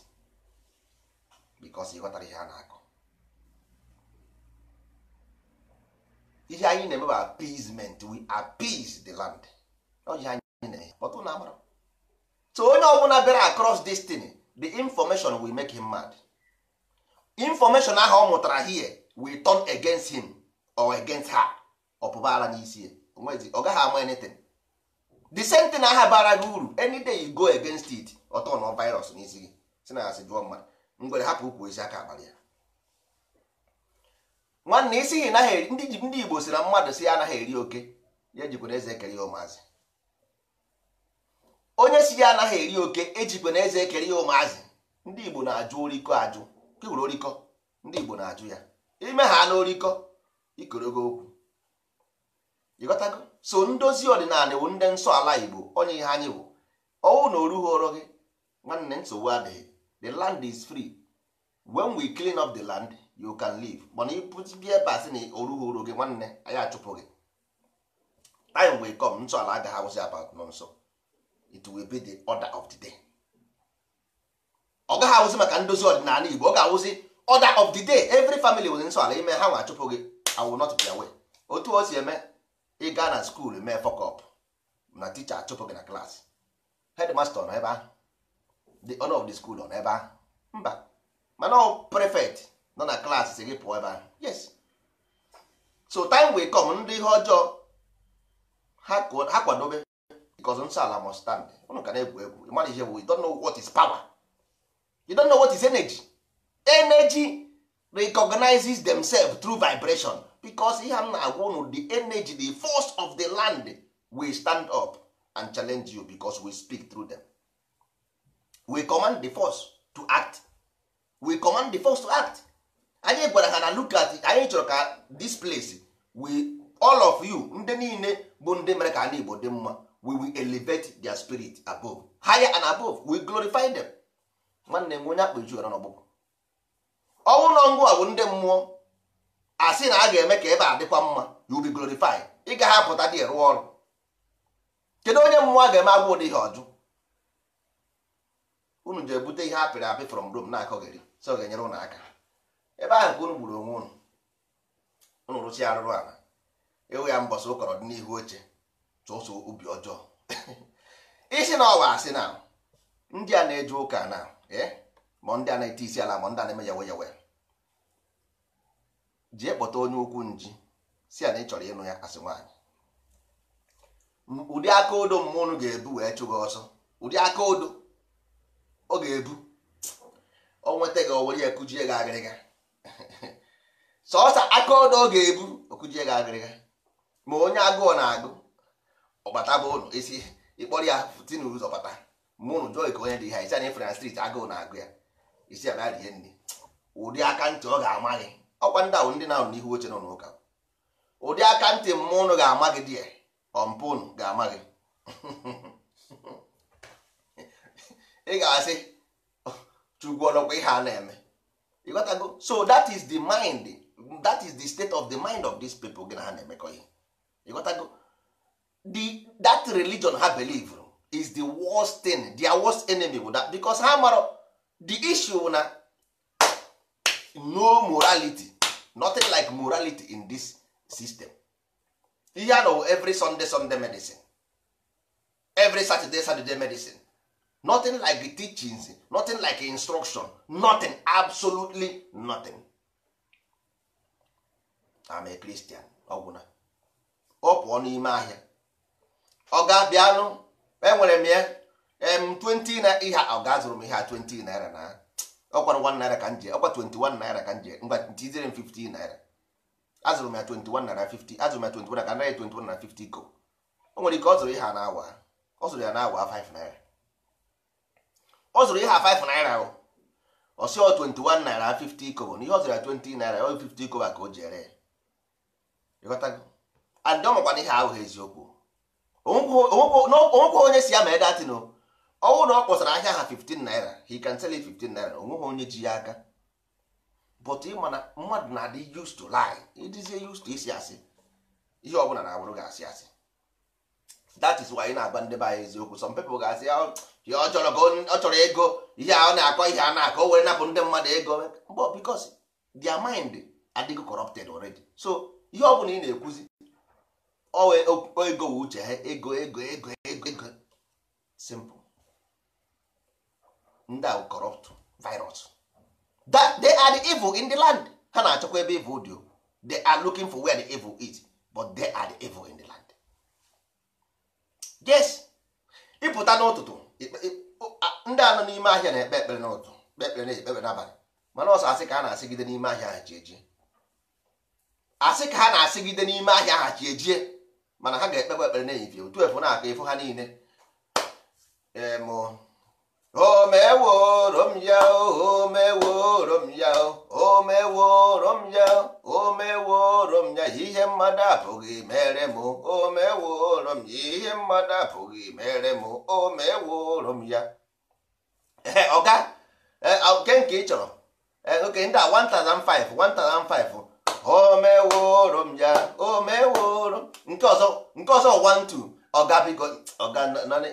[SPEAKER 1] because ị ghọtara ihe a na-akọ ihe anyị na-eme bụ appeasement we appease the land ọ ihe anyị na-eme ọtụ na amara so onye ọbụla bịara across destiny the information will make him mad information ahụ ọ mụtara here will turn against him or against her ọpụbara n'isi ya ọ gaghị ama anything the same thing aha bara gị uru any day you go against it ọtọ na virus n'isi gị si na asị jụọ mmadụ ngwere hapụ ukwu ezi aka abalị ya nwanne isi gị ndị Igbo si na mmadụ si ya anaghị eri oke ya jikwana eze ekere ya ụmụazị onye si ya anaghị eri oke ejikwe na eze ekere ya ụmụazị ndị igbo na-ajụ oriko ajụ kewuru oriko ndị igbo na-ajụ ya ime ha na ikorogo okwu ịghọtago so ndozi ọdịnala bụ ndị nsọ ala igbo onye ihe anyị bụ ọnwụ na orughị ọrụ gị nwanne nsogbu adịghị the land is free when we clean up the land you can live mana ịpụtibia ebe asị na orughị gị nwanne anyị achụpụ gị time will come nsọ ala agaghị awụzi abat nọ nso it will be the order of the day ọ gaghị awụzi maka ndozi ọdịnala igbo ọ ga-awụzi order of the day every family nwere nsọ ala ime ha nwa achụpụ gị i will not be away otu o si eme ịga na skuul mee fọkọp na ticha achụpụ gị na klaasị hedmasta nọ ebe ahụ the owner of the school nọ n'ebe ahụ mba mana ọ prefect nọ na klaasị si gị pụọ ebe ahụ yes so time wey come ndị ihe ọjọọ ha kwadobe because nsọ ala must stand ụnụ ka na-egwu egwu mmadụ ihe bụ you know what is power you don't know what is energy energy recognizes themselves through vibration because ihe m na-agwa di the energy the force of the land we stand up and challenge you because we speak through them we command the force to act we command the force to act anyị gwara ha na look at anyị chọrọ ka this place we all of you ndị niile bụ ndị mere ka Igbo dị mma we will elevate their spirit above higher and above we glorify them nwanne m onye akpa ju ara n'ọgbụgbọ ọnwụ ụlọ ngwụ a bụ ndị mmụọ asị na a ga-eme ka ebe a dịkwa mma you will be glorified ị gaghị apụta dị rụọ ọrụ kedu onye mmụọ a ga-eme agwụ ụdị ihe ọjụ unu ji ebute ihe apịrị apị from Rome na-akọgheri so ga-enyere ụnụ aka ebe ahụ ka unu gburu onwe unu unu rụsi arụrụ ala ewu ya mbọsị ụkọrọ dị n'ihu oche sọsọ obi ọjọọ isi na ọwa asị na ndị a na-eje ụka na eh, ma ndị a na-ete isi ala ma ndị a na-eme yawe yawe ji ekpọta onye ukwu nji si a na ị chọrọ ịnụ ya asị nwaanyị ụdị aka odo mmụnụ ga-ebu wee chụgị ọsọ ụdị aka odo ọ ga-ebu o nweta gị owere ya kujie gị agịrịga sọọsa aka odo ọ ga-ebu okujie gị agịrịga ma onye agụụ na-agụ ọbata bụ ụlọ esi ịkpọrọ ya tinye ụzọ bata mụnụ jụọ ka onye dị ha isi anyị fran strit agụụ na-agụ ya isi abịa rie nri ụdị aka ntị ọ ga-ama gị ọkwa ndị ahụ ndị na-ahụ n'ihu oche nọ n'ụka ụdị aka ntị mmụọ ụnụ ga-ama gị dị ya ọmpụ ụnụ ga-ama gị ị ga-asị chukwu ọnọkwa ihe a na-eme ịghọtago so that is the mind that is the state of the mind of this people gị na ha na-emekọ ihe ịghọtago the that religion ha believe is the worst thing their worst enemy bụ that because ha mara the issue na no morality nothing like morality in this system ihe a nọwụ every sunday sunday medicine every saturday saturday medicine nothing like the teachings nothing like instruction nothing absolutely nothing I'm a Christian ọgwụna ọ pụọ n'ime ahịa ọ ga-abịalụ enwere m ya em 20 na ihe ọ ga-azụrụ m ihe a 20 naira na ọkwara 1 naira ka nje ọkwa 21 naira ka nje mgba ntizire m 15 naira azụrụ m ya 21 naira 50 azụrụ m ya 21 ka naira 21 na 50 go o nwere ike ọ zụrụ ihe a n'awa ọ zụrụ ya n'awa 5 naira ọ zụrụ ihe a 5 naira o ọ sị ọ 21 naira 50 kobo na ihe ọ zụrụ ya 20 naira ọ 50 kobo ka o jere ya ịghọtago and ọ makwana ihe ahụ eziokwu onwekwa onye si ya ma edatin ọnwụ na ọ kpọsara ahịa ha 15 naira he can sell you 15 naira onweghị onye ji ya aka but ịma na mmadụ na-adị used to lie ịdịzie used to isi asị ihe ọbụla na-abụrụ ga asị asị that is why ị na-agba ndị be anyị eziokwu some people ga-asị ya oh, ọ chọrọ ego ihe a ọ na-akọ ihe a na-akọ were napụ ndị mmadụ ego but because their mind adịgo corrupted already so ihe ọbụla ị na-ekwuzi ego wụ uche ha ego ego ego ego ego simple ndị ahụ corrupt virus that they are the evil in the land ha na-achọkwa ebe evil dị they are looking for where the evil is but they are the evil in the land yes ịpụta n'ụtụtụ ndị anọ n'ime ahịa na-ekpe ekpere n'ụtụtụ kpe ekpere na ekpere n'abalị mana ọsọ asị ka ha na-asịgide n'ime ahịa ha ji eji. asị ka ha na-asịgide n'ime ahịa ha ji ejie mana ha ga-ekpekwa ekpere n'ehihie otu efu na-aka efu ha niile m ya m ya omeworom ya m ya ihe mmadụ apụghị mere m m ya ihe mmadụ apụghị mere m m ya ọga nke nke ị chọrọ oke ndị a 1005 1005 o meworo m ya o meworo nke ọzọ nke ọzọ one two ga biko ọga nanị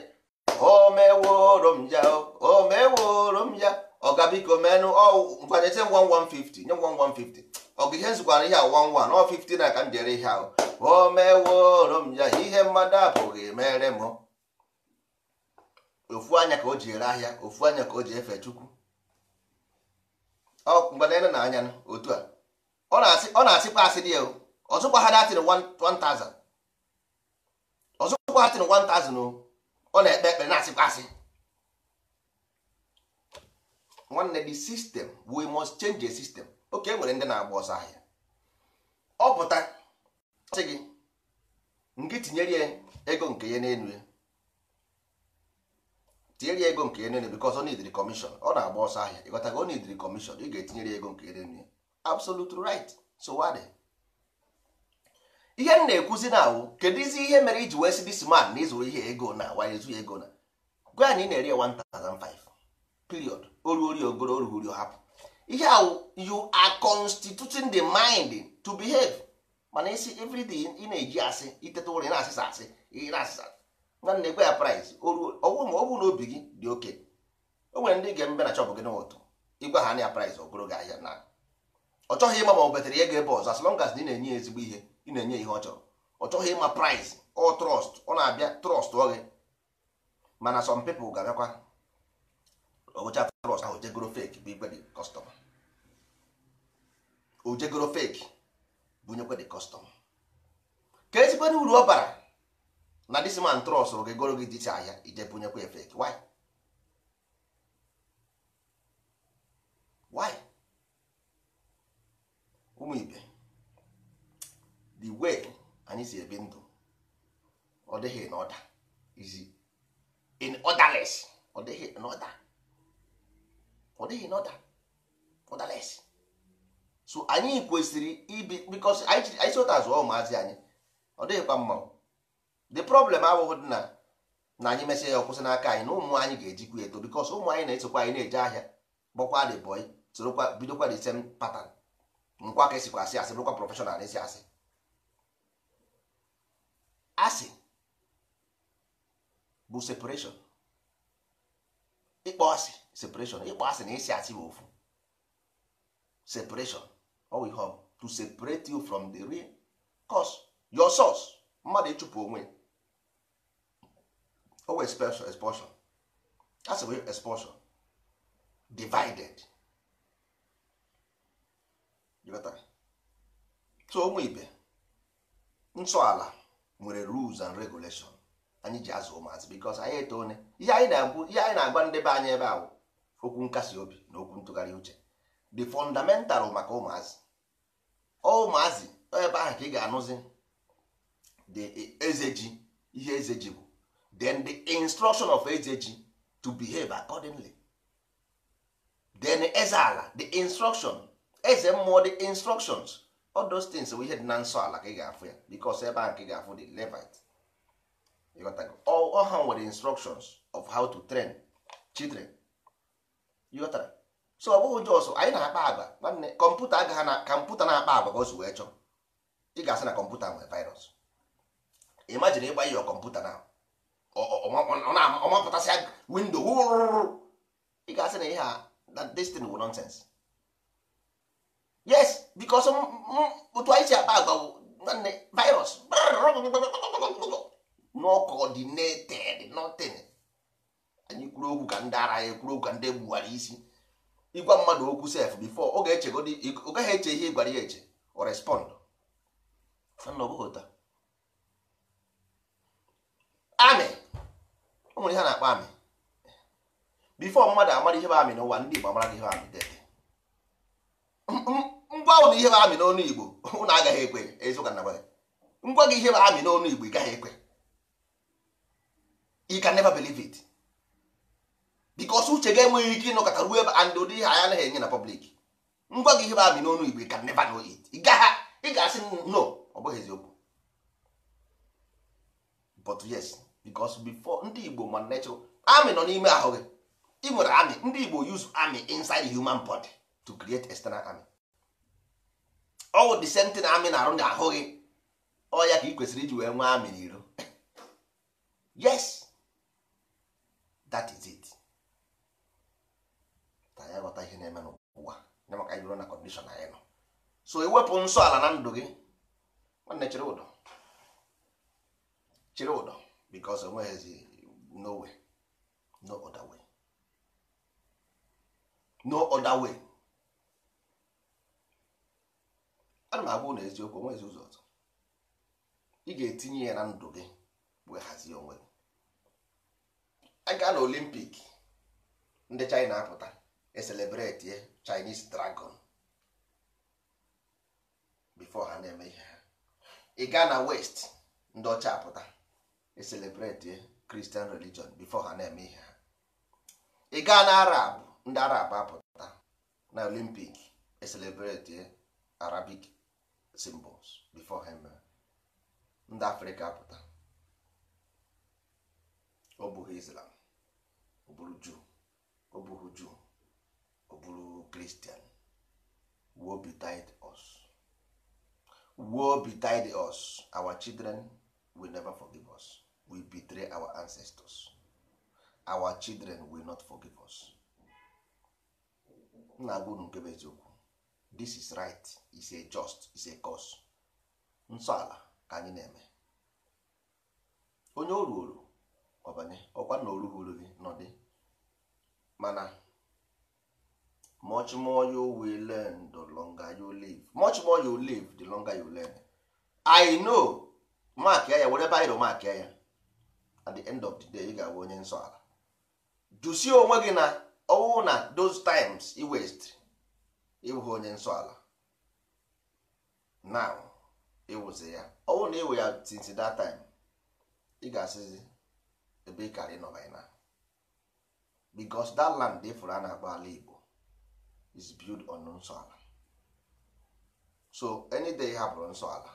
[SPEAKER 1] o meworo m ya o meworo m ya ọ ọga biko menụ ngwanye nye m 1150 nye m 1150 ọgụ ihe nzikwara ihe a 11 ọ 15 na ka m jere ihe ahụ o meworo m ya ihe mmadụ apụghị mere m ofu anya ka o ji ere ahịa ofu anya ka o ji efe chukwu ọ oh, mgbe na-ene na anya otu a ọ na-asịkwa asị dị ya ọzụkwa ha datin 1000 ọzụkwa ha tin 1000 ọ na-ekpe ekpere na-asịkwa asị nwanne the system we must change the system oke enwere ndị na-agba ọsọ ahịa ọ pụta sị gị nke tinyere ya ego nke ya n'elu ya tinyere ya ego nke ya n'elu because ọ nidiri commission ọ na-agba ọsọ ahịa o ọ nidiri commission ị ga-etinyere ya ego nke ya n'elu ya absolute right so what ihe m na-ekwuzi na awụ kedu izi ihe mere iji wee si dis na ịzụrụ ihe ego na wa ezu ego na gwa na ị na-eri 1005 period oruori ogoro oruhuri hapụ ihe awụ you are constituting the mind to behave mana isi everything ị na-eji asị iteta ụra ị na-asịsa asị ị na-asịsa nwanne gwa ya price ọgwụ ma ọ na obi gị dị oke o nwere ndị ga-emebe na chọpụ gị n'ụtụ ịgwa ha na ya price ogoro gị ahịa na ọ chọghị ịma ma ọ betere ya ga ebe ọzọ as long as na ị na-enye ya ezigbo ihe ị na-enye ihe ọ chọrọ ọ chọghị ịma price ọ trọst ọ na-abịa trọst ọ gị mana some people ga-abịakwa owecha trọst ahụ jegoro fake bụ igwe dị kọstọma ojegoro fake bunyekwe dị kọstọma ka ezigbo uru ọ bara na dis man trọst rụ gị goro gị dịcha ahịa ije bunyekwa kwe fake why why ụmụ ibe the way anyị si ebi ndụ ọ dịghị na ọda izi in orderless ọ dịghị na ọda ọ dịghị na ọda orderless so anyị kwesịrị ibi because anyị si ụta zụọ ụmụazị anyị ọ dịghịkwa mma the problem abụghị dị na na anyị mesịa ya ọkwụsị n'aka anyị na ụmụ anyị ga-ejikwa eto because ụmụ anyị na-esokwa anyị na-eje ahịa gbakwa the boy sorokwa bidokwa the same pattern nkwa ka esikwa asị asị bụrụkwa prọfeshọnal esi asị asị bụ separeshọn ịkpọ asị separeshọn ịkpọ asị na isi asị bụ ofu separeshọn owe ihe to separate you from the real cause your source mmadụ ịchụpụ onwe owe expulsion expulsion asị bụ expulsion divided so ụmụ ibe ala nwere rules and regulation anyị ji azụ ụmụazị because anyị etone ihe anyị na-agwa ndị be anyị ebe ahụ okwu nkasi obi na okwu ntụgharị uche the fundamental maka ụmụazị ụmụazị ebe ahụ ka ị ga-anụzi the eze ji ihe eze ji bụ then the instruction of eze ji to behave accordingly then eze ala the instruction eze mmụọ dị instructions all those things bụ ihe dị na nsọ ala ka ị ga-afụ ya because ebe ahụ ka ị ga-afụ dị levite ọha nwere instructions of how to train children ịghọtara so ọ bụghị jos anyị na-akpa agba nwanne kọmputa agaghị na kọmputa na-akpa agba ka o si wee chọọ ị ga-asị na kọmputa nwere virus imagine ịgba ihe kọmputa na ọmapụtasị windo ị ga-asị na ihe a destin wụ nonsense yes because otu anyị si akpa agwa bụ nwanne virus not coordinated nothing anyị kwuru okwu ka ndị ara anyị kwuru okwu ka ndị gbuwara isi ịgwa mmadụ okwu sef before ọ gaghị eche ihe ị gwara ya eche o respond amị ọ nwere ihe na-akpọ amị before mmadụ amara ihe bụ amị n'ụwa ndị Igbo amara ihe amị dede mm, mm. ngwa ahụ na ihe bụ amị n'onu igbo ụnụ agaghị ekwe eziụka na gwara ngwa gị ihe bụ amị n'onu igbo ị gaghị ekwe you can never believe it because uche ga enweghị ike ịnọkọta ruo ebe and ụdị ihe anyị anaghị enye na public ngwa gị ihe bụ amị n'onu igbo ị ka never know it ị ga-asị no ọ bụghị eziokwu but yes because before ndị igbo ma natural amị nọ n'ime ahụ gị ị nwere amị ndị igbo use amị inside human body to create external army. ọwụ the same thing amị na-arụ na ahụ gị ọ ya ka ị kwesịrị iji wee nwee amị n'iro yes that is it ka anyị ghọta ihe na-eme n'ụwa nye maka anyị na kọndishọn anyị nọ so ewepụ nsọ ala na ndụ gị nwanne chịrị ụdọ chịrị ụdọ bikos onweghịzi no way no other way no other way ana m agwa na eziokwu onwezi ụzọ ọzọ ị ga-etinye ya na ndụ gị wee hazie onwe gị a gaa na olimpik ndị china apụta eselebreti chinese dragon bifo ha na-eme ihe ha ị gaa na west ndị ọcha apụta eselebreti christian religion bifo ha na-eme ihe ha ị gaa na arab ndị arab apụta na olimpik eselebreti arabic symbols before ha eh? ndị afrịka pụta ọ bụghị islam ọ bụrụ juu ọ bụghị juu ọ bụrụ kristian wo betide us betide us our children will never forgive us we betray our ancestors our children will not forgive us nna agwa unu nke bụ eziokwu this is right is a just is a cause nsọ ala ka anyị na-eme onye oru oru ọbanye ọkwa na oru hụrụ gị dị mana much more you will learn the longer you live much more you live the longer you learn i know mark ya ya were bairo mark ya at the end of the day ị ga-abụ onye nsọ ala jụsie onwe gị na ọwụ na those times i waste ịwụghị onye nsọ ala na ịwụzi ya ọ bụrụ na ya since that time ị ga-asịzi ebe ị karị nọ by now because that land dị fụrụ a na-akpọ ala Igbo is built on nsọ ala so any day hapụrụ nsọ ala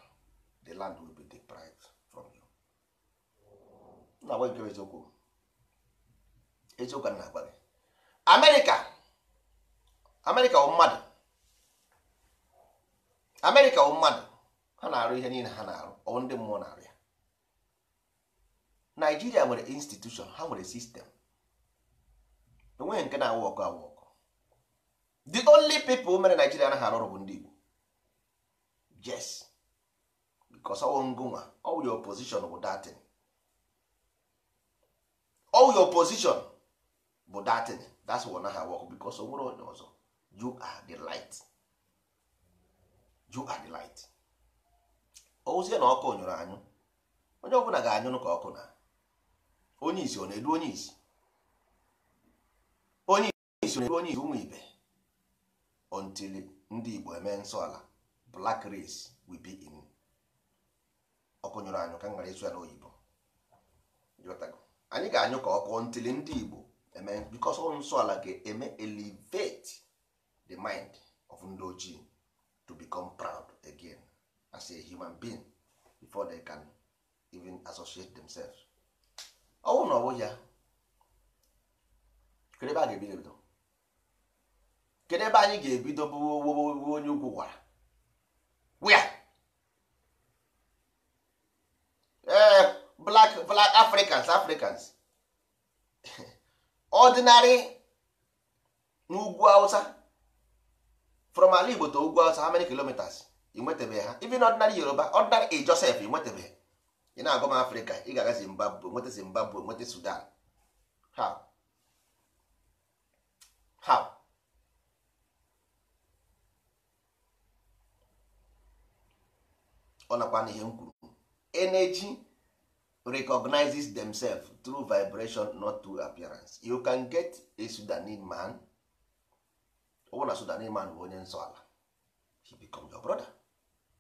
[SPEAKER 1] the land will be deprived from you na agwa nke eziokwu eziokwu na agwa gị Amerịka Amerịka bụ mmadụ amerịka bụ mmadụ ha na-arụ ihe niile ha na-arụ ọ ndị mmụọ na-arụ ya naijiria nwere institushọn ha nwere sistem enweghị nke na-awụ ọkụ awụ ọkụ the only people mere naijiria na arụ ọrụ bụ ndị igbo yes because ọwụ ngụnwa ọwụ your position bụ datin ọwụ your position bụ datin that's why ọ naghị awụ ọkụ because onye ọzọ you are the light you are the light ozie na ọkụ nyụrụ anyụ onye ọbụla ga-anyụrụ ka ọkụ na onye isi ọ na-edu onye isi onye isi ọ na-edu onye isi ụmụ ibe until ndị Igbo eme nsọ ala black race will be in ọkụ nyụrụ anyụ ka ngara ịsụ ya n'oyibo anyị ga-anyụ ka ọkụ until ndị Igbo eme because nsọ ala ga-eme elevate the mind of ndị ojii to become proud again as a human being before they can even associate themselves ọnwụ na ọwụ ya kedụ ebe a ga-ebido ebido kedụ ebe anyị ga-ebido bụ onye ugwu gwara wia ee eh, black black africans africans ordinary n'ugwu Hausa from ala igbo to ugwu awụsa how many kilometers ị ha even ordinary yoruba ordinary e joseph ị nwetabeghị ị na-agụ m afrịka ị ga-aga zimbabwe nweta zimbabwe nweta sudan how how ọ nakwa n'ihe m kwuru energy recognizes themselves through vibration not through appearance you can get a sudanese man na so na man bụ onye nsọ ala he become your brother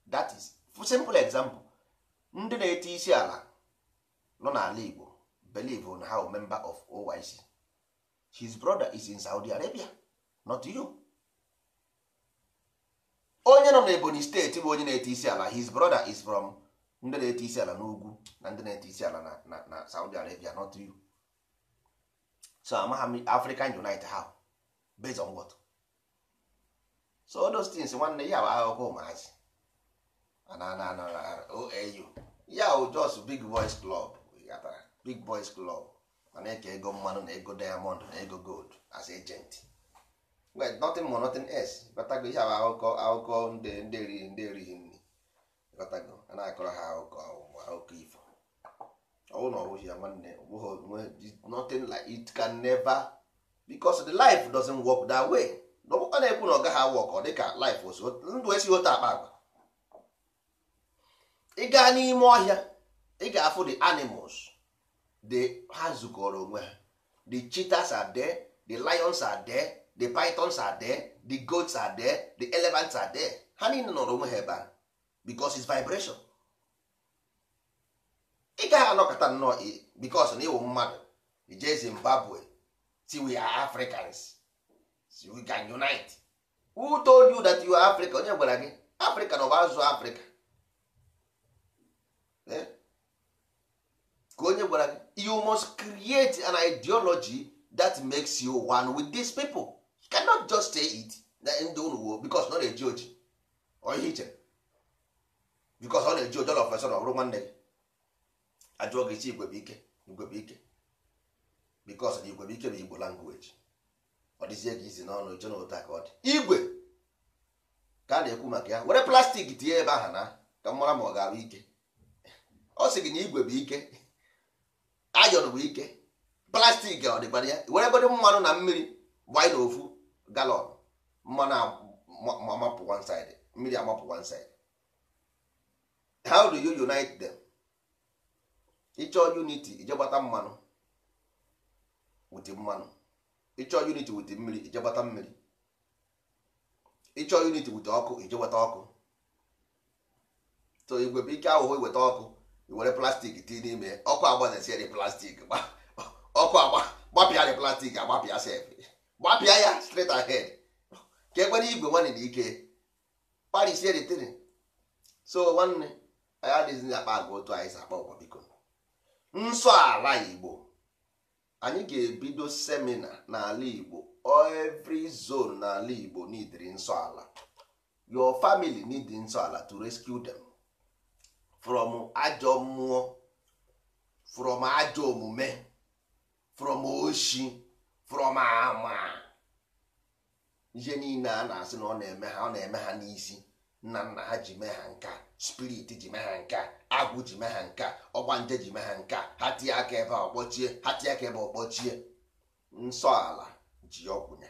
[SPEAKER 1] that is simple example ndị na-ete isi ala nọ n'ala Igbo believe on how member of OYC his brother is in Saudi Arabia not you onye nọ n'Ebonyi steeti bụ onye na-ete isi ala his brother is from ndị na-ete isi ala n'ugwu na ndị na-ete isi ala na, na, Saudi Arabia not you so amaghị African Unite how based on what so those things nwanne ya bụ akụkọ ụmụazị OAU ya bụ just big boys club gatara big boys club mana eke ego mmanụ na ego diamond na ego gold as agent well nothing more nothing else batago ihe bụ akụkọ akụkọ ndị erighi ndị erighi nri batago a na-akọrọ ha akụkọ akụkọ ifo ọwụ na ọwụghị ya nwanne nothing like it can never because the life doesn't work that way ọ na-ekwu na ọ gaghị awa ọkọ dịka life osu ndụ si otu akpa agwa ị gaa n'ime ọhịa ị ga-afụ the animals the ha zukọrọ onwe ha the cheetahs are there the lions are there the pythons are there the goats are there the elephants are there ha niile nọrọ onwe ha ebe a because his vibration ị gaghị anọkọta nnọọ because na ịwụ mmadụ ije Zimbabwe tiwe Africans so we can unite who told you that you are africa onye gwara gị africa na ọba azụ africa eh? ka onye gwara gị you must create an ideology that makes you one with these people you cannot just say it na ndị unu wo bikos na ọ eji oji oyihe iche bikos ọ na-eji oji ọla ofesọrọ ọrụ nwanne gị ajụọ gị chi igwebe ike ike bikos na ike bụ igbo language ọ dịzie ka isi n'ọnụ jụ na ụta ka ọ dị igwe ka a na-ekwu maka ya were plastik tinye ebe ahụ na ka m mara ma ọ ga-abụ ike ọ sị gị na igwe bụ ike ayọn bụ ike plastik ọ dịkwara ya were godo mmanụ na mmiri gbanye ofu galọn mmanụ amapụ one side mmiri amapụ one side how do you unite them ịchọ unity ije gbata mmanụ wute mmanụ ịchọọ unit wute mmiri ijegbata mmiri ịchọọ unit wute ọkụ ijegbata ọkụ to igwe ike ahụhụ iweta ọkụ iwere plastik tii n'ime ọkụ agbazesiere plastik ọkụ gbapịa dị plastik agbapịa sef gbapịa ya straight ahead ka ekwere igwe nwanne na ike parisie detiri so nwanne anyị adịghịzi akpa agwa otu anyị si akpa ụwa biko nsọ ala igbo anyị ga-ebido semina n'ala Igbo every zone n'ala Igbo neediri nsọala your family need nsọala to rescue them from ajọ mmụọ from ajọ omume from oshi from ama ihe niile a na-asị na ọ na-eme ha n'isi nna nna ha ji mee ha nke a spirit ji mee ha nke a agwụ ji mee ha nke a nje ji mee ha nke a ha tie aka ebe a ọkpọchie ha aka ebe ọkpọchie nsọ ji ọkwụnya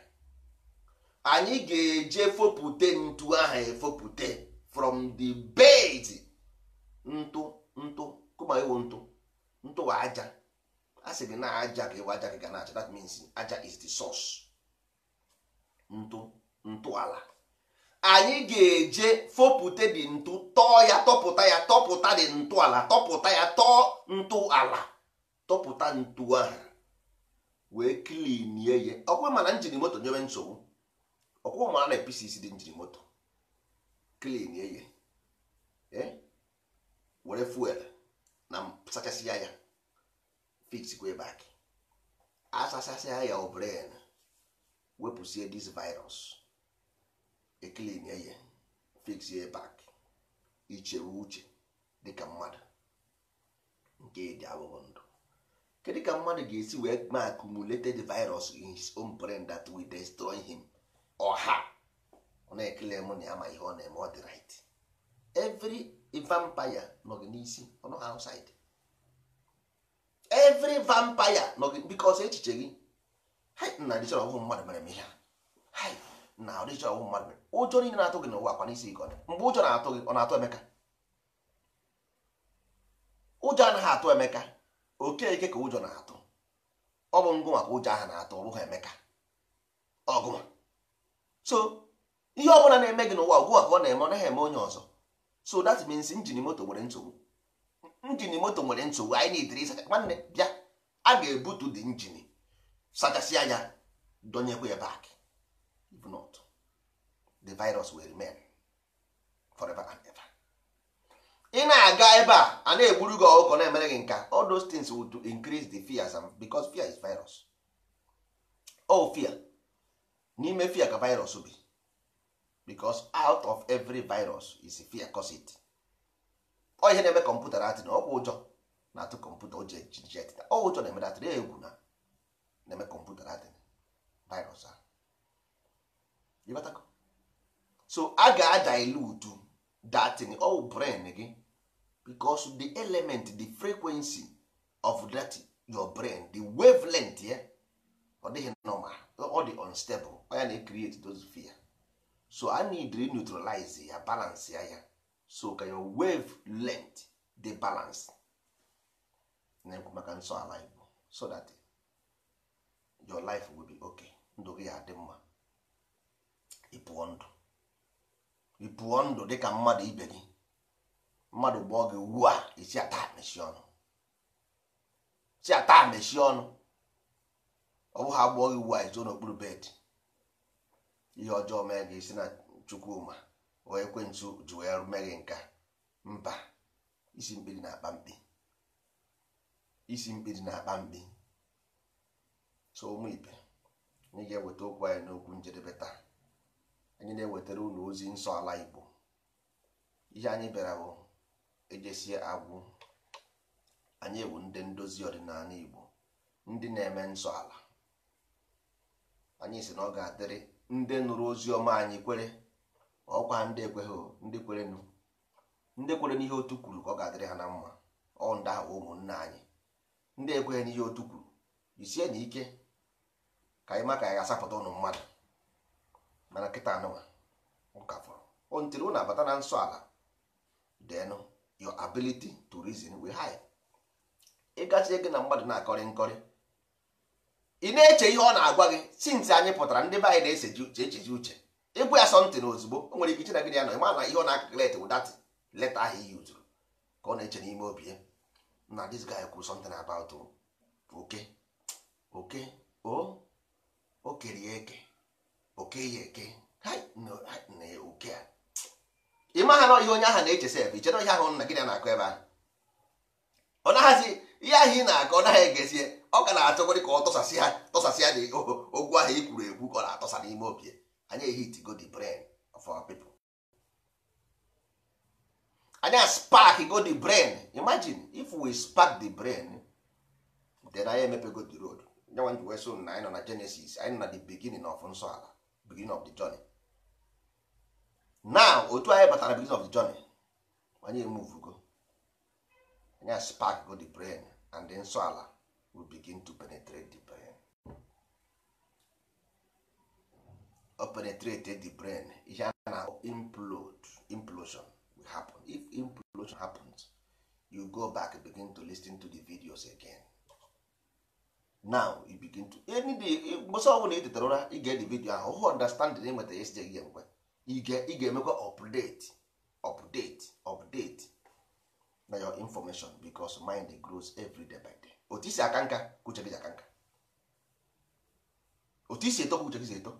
[SPEAKER 1] anyị ga-eje fopụte ntu ahụ efopụte from the bed ntụ ntụ kụma iwu ntụ ntụ aja a sị na aja ka ewe aja ga na-acha that means aja is the source ntụ ntụ anyị ga-eje fopute dị ntụ tọọ ya tọpụta ya tọpụta dị ntụ ala tọpụta ya tọọ ntụ ala tọpụta ntụ ahụ wee klinie ya ọkwa mana njiri moto nyewe nsogbu ọkwa mana na pcc dị njiri moto klinie ya eh? were fuel na sachasịa ya fiksikwe bak asachasịa ya obren wepụsie dis virus eklin eye fix ye back ichewe uche dịka mmadụ nke dị abụghị ndụ kedu ka mmadụ ga-esi wee ma accumulated virus in his own brain that will destroy him ọha her ọ na-ekele m na ya ihe ọ na-eme ọ dị right every vampire nọ gị n'isi ọnụ nọghị outside every vampire nọ gị because echiche gị na dịchọrọ ọhụụ mmadụ mere m ihe a na ọdịchọ ọwụ mmadụ ụjọ niile na-atụ gị n'ụwa akwa n'isi ike mgbe ụjọ na-atụ gị ọ na-atụ emeka ụjọ anaghị atụ emeka okeke ka ụjọ na-atụ ọ bụ ngụ maka ụjọ ahụ na-atụ ọ bụghị emeka ọgụma so ihe ọbụla na-eme gị n'ụwa ugbu a ka ọ na-eme ọ naghị eme onye ọzọ so that means njin moto nwere nsogbu njin moto nwere nsogbu anyị na-ediri ịsacha nwanne bịa a ga-ebutu dị injini sachasị anya dọnyekwa ya baakị the virus will remain forever and ever. ị na-aga ebe a a na-egburu gị na-emere gị nka all those things would increase the fears because fear is virus oh fear n'ime fear ka virus bi because out of every virus is fear cause it ọ ihe na-eme kọmputa atị na ọkwa ụjọ na-atụ kọmputa o ji etita ọ ụjọ na-eme atị na egwu na na-eme kọmputa atị virus a ịbatako so a ga-adilute datin all brain gị because the element the frequency of that your brain the wavelength ya ọ dịghị normal ọ dị unstable ya na create those fear so a need to neutralize ya balance ya ya so ka your wave length dey balance na-ekwu maka nsọ ala igbo so that your life will be okay ndụ gị adị mma ịpụọ ndụ ị pụọ ndụ dịka mmadụ ibe gị mmadụ gbọọ gị ugbu a isi ata mechi ọnụ ọ bụ ha gị ugbu a izo n'okpuru bed ihe ọjọọ mee gị isi na chukwuma wee ekwentị ji wee mee gị nka mba isi mkpiri na-akpa mkpi isi mkpiri na-akpa mkpi so ụmụ ibe anyị ga-eweta okwu anyị n'okwu njedebe taa anyị na-ewetara ụlọ ozi nsọ ala Igbo ihe anyị bịara bụ ejesie agwụ anyị ewu ndị ndozi ọdịnala Igbo ndị na-eme nsọ ala anyị si na ọ ga-adịrị ndị nụrụ ozi ọma anyị kwere ọkwa ndị ekweghị ndị kwere ndị kwere n'ihe otu kwuru ka ọ ga-adịrị ha na mma ọ ndagha ụmụnna anyị ndị ekweghị n'ihe otu kwuru isie na ike ka anyị ma ka anyị ga-asapụta ụnụ mmadụ mana nkịta anụwa ụka fọrọ o oh, oh, ntiri ụnụ abata na nsọ ala denụ your ability to reason will high ịgazie gị na mmadụ na-akọrị nkọrị ị na-eche ihe ọ na-agwa gị since anyị pụtara ndị be anyị na-echeji uche ịgwa ya sọntị na ozugbo o nwere ike iche na ya nọ ịma na ihe ọ na-akaklet wụ dat leta ahụ iyi uzuru ka ọ na-eche n'ime obi ya na dis guy kwuru sọntịn about oke oke oh, o o kerie eke oke ya eke oke a ị ha na ihe onye ahụ na-echesa ebe ichere ihe ahụ nna gị na-akọ ebe ahụ ọ naghazi ihe ahụ ị na-akọ ọ naghị egezie ọ ka na-achọgorị ka ọ tọsasị ha tọsasị ya na ogwu ahụ i kwuru ekwu ka ọ na-atọsa n'ime obi anya anyị ehitigo the brain of our people anya spark go the brain imagine if we spark the brain then anyị emepego the road nyanwa nji wee so na anyị nọ na Genesis anyị nọ na the beginning of nsọ ala beginning of the journey now otu anyị batara beginning of the journey anyị emuvugo anyị spark go the brain and the nsọ ala will begin to penetrate the brain o penetrate the brain ihe a na implode implosion will happen if implosion happens you go back begin to listen to the videos again now you begin to eh, mgbọsọ ọbụla ị tetara ụra ị ga-ede vidio ahụ hụ understanding enweta ya sijeghị ya mgbe ị ga-emekwa update update update na your information because mind grows every day by day otu isi aka nka kuche gị aka nka otu isi eto kuche gị eto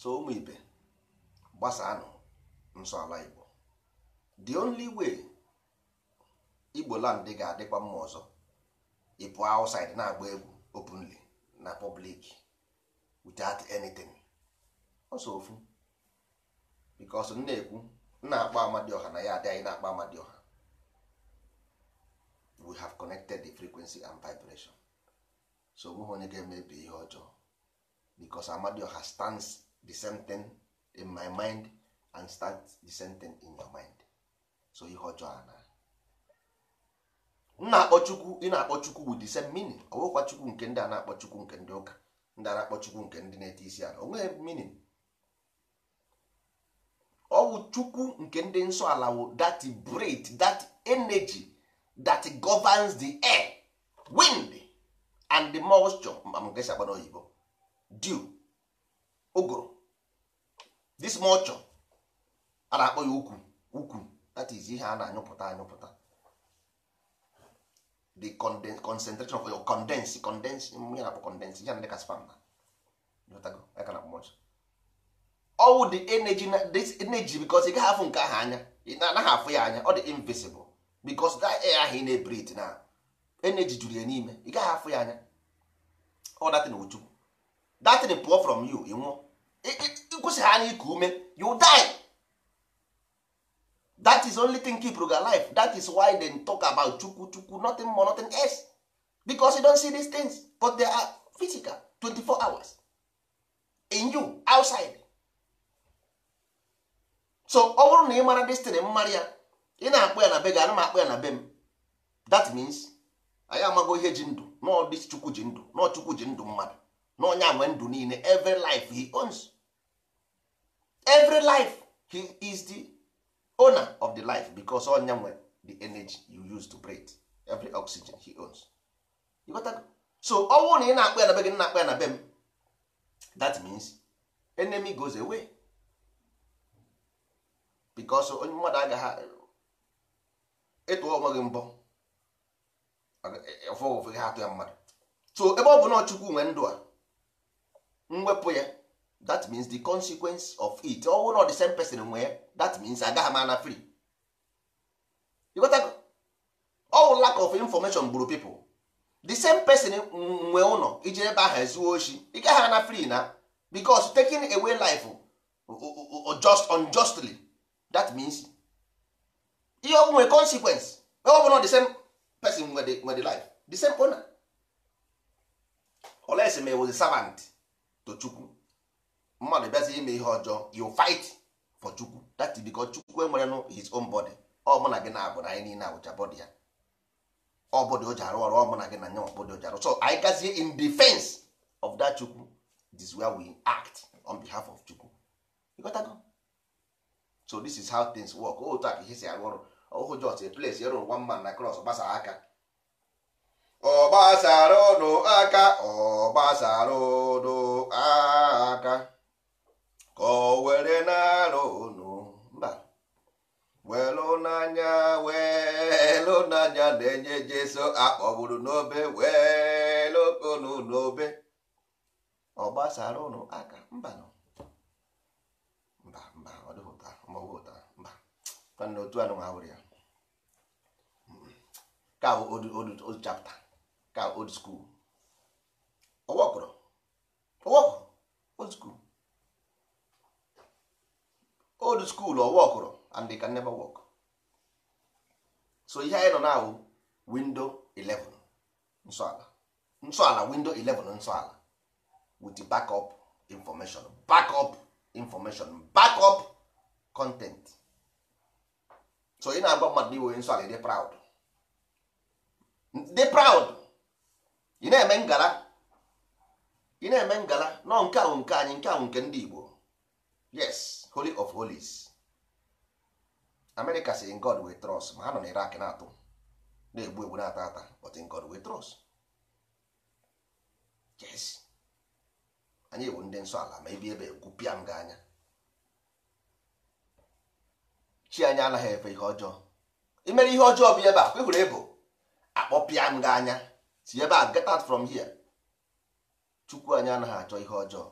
[SPEAKER 1] so ụmụ ibe gbasaanụ nsọ ala Igbo the only way Igbo land ga-adịkwa mma ọzọ ịpụ outside na-agba egwu openly na public without anything ọsọ ofu because m na-ekwu na-akpọ Amadioha na ya adị anyị na-akpọ Amadioha we have connected the frequency and vibration so onweghị onye ga-emebi ihe ọjọọ because Amadioha stands the same thing in my mind and stands the same thing in your mind so ihe ọjọọ na na-akpọ chukwu ị na-akpọ chukwu wụ dise minin chukwu nke ndị a na-akpọ chukwu nke ndị ụka ndị a na-akpọ chukwu nke ndị na-ete isi ala onweghị minin ọ chukwu nke ndị nsọ ala wụ that breath that energy that governs the air wind and the moisture amgesi agba n'oyibo dew ogoro this moisture a na-akpọ ya ukwu ukwu that is ihe a na-anyụpụta anyụpụta the concentration of your condense condense ya na-akpọ condense ya ndị ka spam ọwụ the energy this energy because ị gaghị afụ nke ahụ anya ị na-anaghị afụ ya anya ọ dị invisible because that air ahụ ị na-ebrit na energy juru ya n'ime ị gaghị afụ ya anya ọ datin ochukwu datin pụọ from you ị nwụọ ịkwụsị ha anya ume you die that is only thing keep ruga life that is why they talk about chukwu chukwu nothing more nothing else because you don see these things but they are physical 24 hours in you outside so ọ bụrụ na ị mara destin mmadụ ya ị na akpụ ya na be gị ana m akpọ ya na be m that means anyị amago ihe ji ndụ n'ọdị chukwu ji ndụ n'ọ chukwu ji ndụ mmadụ n'ọnya nwe ndụ niile every life he owns every life he is the owner of the life because onya nwe the energy you use to breathe every oxygen he owns so ọnwụ na ị na-akpọ ya na be gị na-akpọ ya na be m that means enemy goes away because onye mmadụ agaghị ịtụọ onwe gị mbọ ha atụ ya mmadụ so ebe ọ bụ na chukwu nwe ndụ a mwepụ ya that means the consequence of it ọ na the same person nwe that means agaghị m ana free all lack of information gburu people the same person nwe ụlọ iji ebe ahụ ezuo oshi ị gaghị ana free na because taking away life just unjustly that means ihe ọ nwere consequence ọ bụrụ the same person nwe the, life the same owner oles ma was a servant to chukwu mmadụ bịazi ime ihe ọjọọ you fight for chukwu that is because chukwu enwere his own body ọ mụ na gị na-abụ na anyị niile abụcha bọdị ya ọ bọdị o ji arụ ọrụ ọ mụ na gị na nya bọdị o so anyị gazie in defense of that chukwu this is where we act on behalf of chukwu ịghọtago so this is how things work otu a ka ihe si arụ ọrụ ọhụ jos place ịrụ e one man na cross gbasa aka ọ gbasara aka ọ gbasara aka ka o were na-arụ unu mba welu n'anya welu n'anya na-enye jeso akpọgburu n'obe welu konu n'obe ọ gbasara unu aka mba mba mba ọ dịpụta mgbagwụta mba mana otu anụ ha were ya ka old ka old skul ọwọkụrụ ọwọkụrụ old skul. old school or work or and they can never work so ihe anyị nọ na window 11 nsọala nsọala window 11 nsọala with backup information backup information backup content so ị na-agba mmadụ iwe nsọala dị proud dị proud ị na-eme ngala ị na-eme ngala nọ nke ahụ nke anyị nke ahụ nke ndị Igbo yes holy of holies america si god we trust ma ha nọ na irak na-atụ na-egbu egbu na-ata ata but in god we trust yes anyị bụ ndị nsọ ala ma ebi ebe egwupịa m anya chi anya anaghị efe ihe ọjọọ imere ihe ọjọọ bụ ebe a kwehụrụ ebo akpọpịa m gị anya si ebe a get out from here chukwu anyị anaghị achọ ihe ọjọọ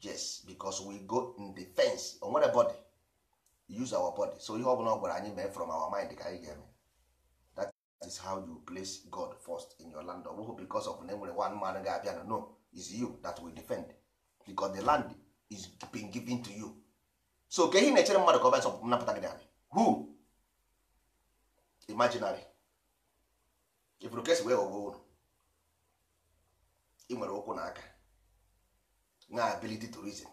[SPEAKER 1] yes because we go in defense onwere nwere body use our body so ihe ọbụla ọ gwara anyị mee from our mind ka anyị ga-eme that is how you place God first in your land ọ bụghị because of na enwere one man ga-abịa no is you that we defend because the land is being given to you so ka ihe na-echere mmadụ ka ọ bịa napụta gị narị who imaginary ifuru kesi wee ghọgbuo ụlọ ị nwere ụkwụ na aka na ability to reason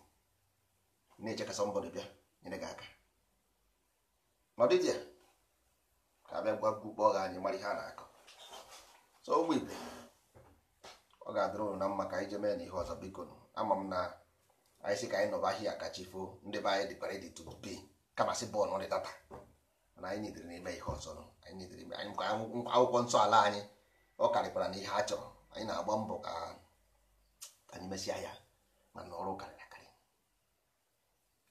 [SPEAKER 1] na-eche ka somebody bịa nyere gị aka ọ ya ka abịa gwa kpọọ gị anyị mara ha na-akọ so ụmụ ibe ọ ga-adịrị ụnụ na mma ka anyị jee mee na ihe ọzọ biko ama m na anyị sị ka anyị nọba ahịa kachi foo ndị be anyị dịkwara dị to be kamasị bọọlụ dị tata na anyị na n'ime ihe ọzọ anyị ime anyị ka akwụkwọ nsọ ala anyị ọ karịkwara na ihe a chọrọ anyị na-agba mbọ ka anyị mesịa ya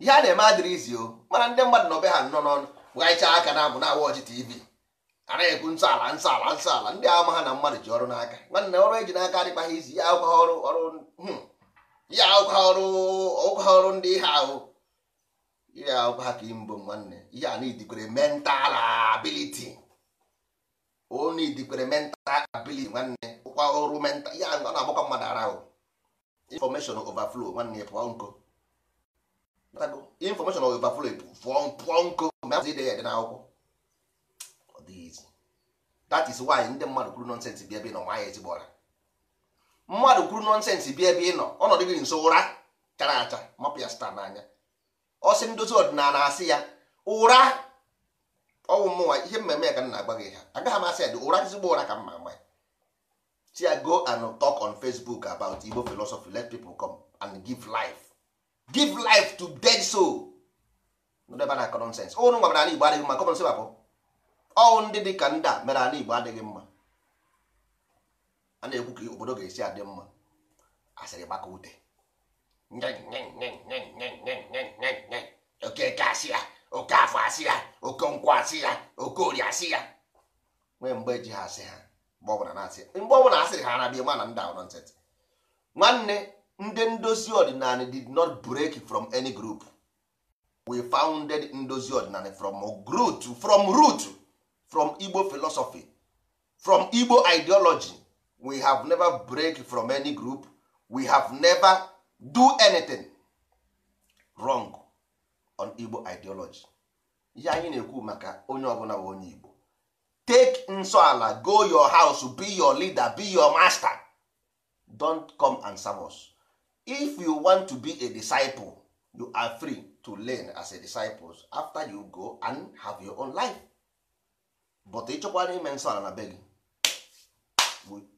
[SPEAKER 1] ihe a na-eme adịrị izi o mana ndị mmadụ na obe ha nọ n'ọnụ ghaichaa aka na abụ na awa ọchị tv anaghị ekwu nsọ ala nsọ ala nsọ ala ndị ama ha na mmadụ ji ọrụ n'aka nwanne ọrụ eji n'aka adịkpaghị ha izi ya akwụkwọ ọrụ ọrụ ya hmm. akwụkwọ ọrụ ọkwụkwọ ọrụ ndị ihe ahụ ihe akwụkwọ ha ka imbụ nwanne ihe a n'idikwere mental ability o n'idikwere mental ability nwanne ụkwa ọrụ mental ya na agbakwa mmadụ ara ahụ information overflow nwanne pụọ nko information of overflow pụọ pụọ nko mgbe a ide n'akwụkwọ ọ that is why ndị mmadụ kwuru nọnsensị bịa ebe nọ ma ya ezigbo ọra mmadụ kwuru nọnsensị bịa ebe ị nọ ọnọdụ gị nso ụra chara acha mapụ ya n'anya ọsị ndozi ọdịnala asị ya ụra ọnwụ mmụnwa ihe mmemme ya ka m na gị ha agaghị m asị ya dị ụra ezigbo ụra ka mma ma ya ya go and talk on Facebook about Igbo philosophy let people come and give life give life to dead soul ndebe na common sense ụnụ nwa mere ala igbo adịghị mma common sense bụ ọwụ ndị dị ka ndị a mere ala igbo adịghị mma a na-ekwu ka obodo ga-esi adị mma asịrị gbaka ute oke eke asị ya oke afọ asị ya oke nkwụ asị ya oke ori asị ya nwee mgbe ji ha asị ha mgbe ọbụla na-asị mgbe ọbụla asịrị ha na bịa mana ndị ahụ nọnsensị nwanne ndị ndozi ọdịnala did not break from any group we founded ndozi ọdịnala from root from root from igbo philosophy from igbo ideology we have never break from any group we have never do anything wrong on igbo ideology ya anyị na-ekwu maka onye ọbụla bụ onye igbo take nsoala go your house be your leader be your master don't come and serve us. if you want to be a disciple you are free to learn as a disciple after you go and have your own life but ịchọkwara ime nsọ ala na be gị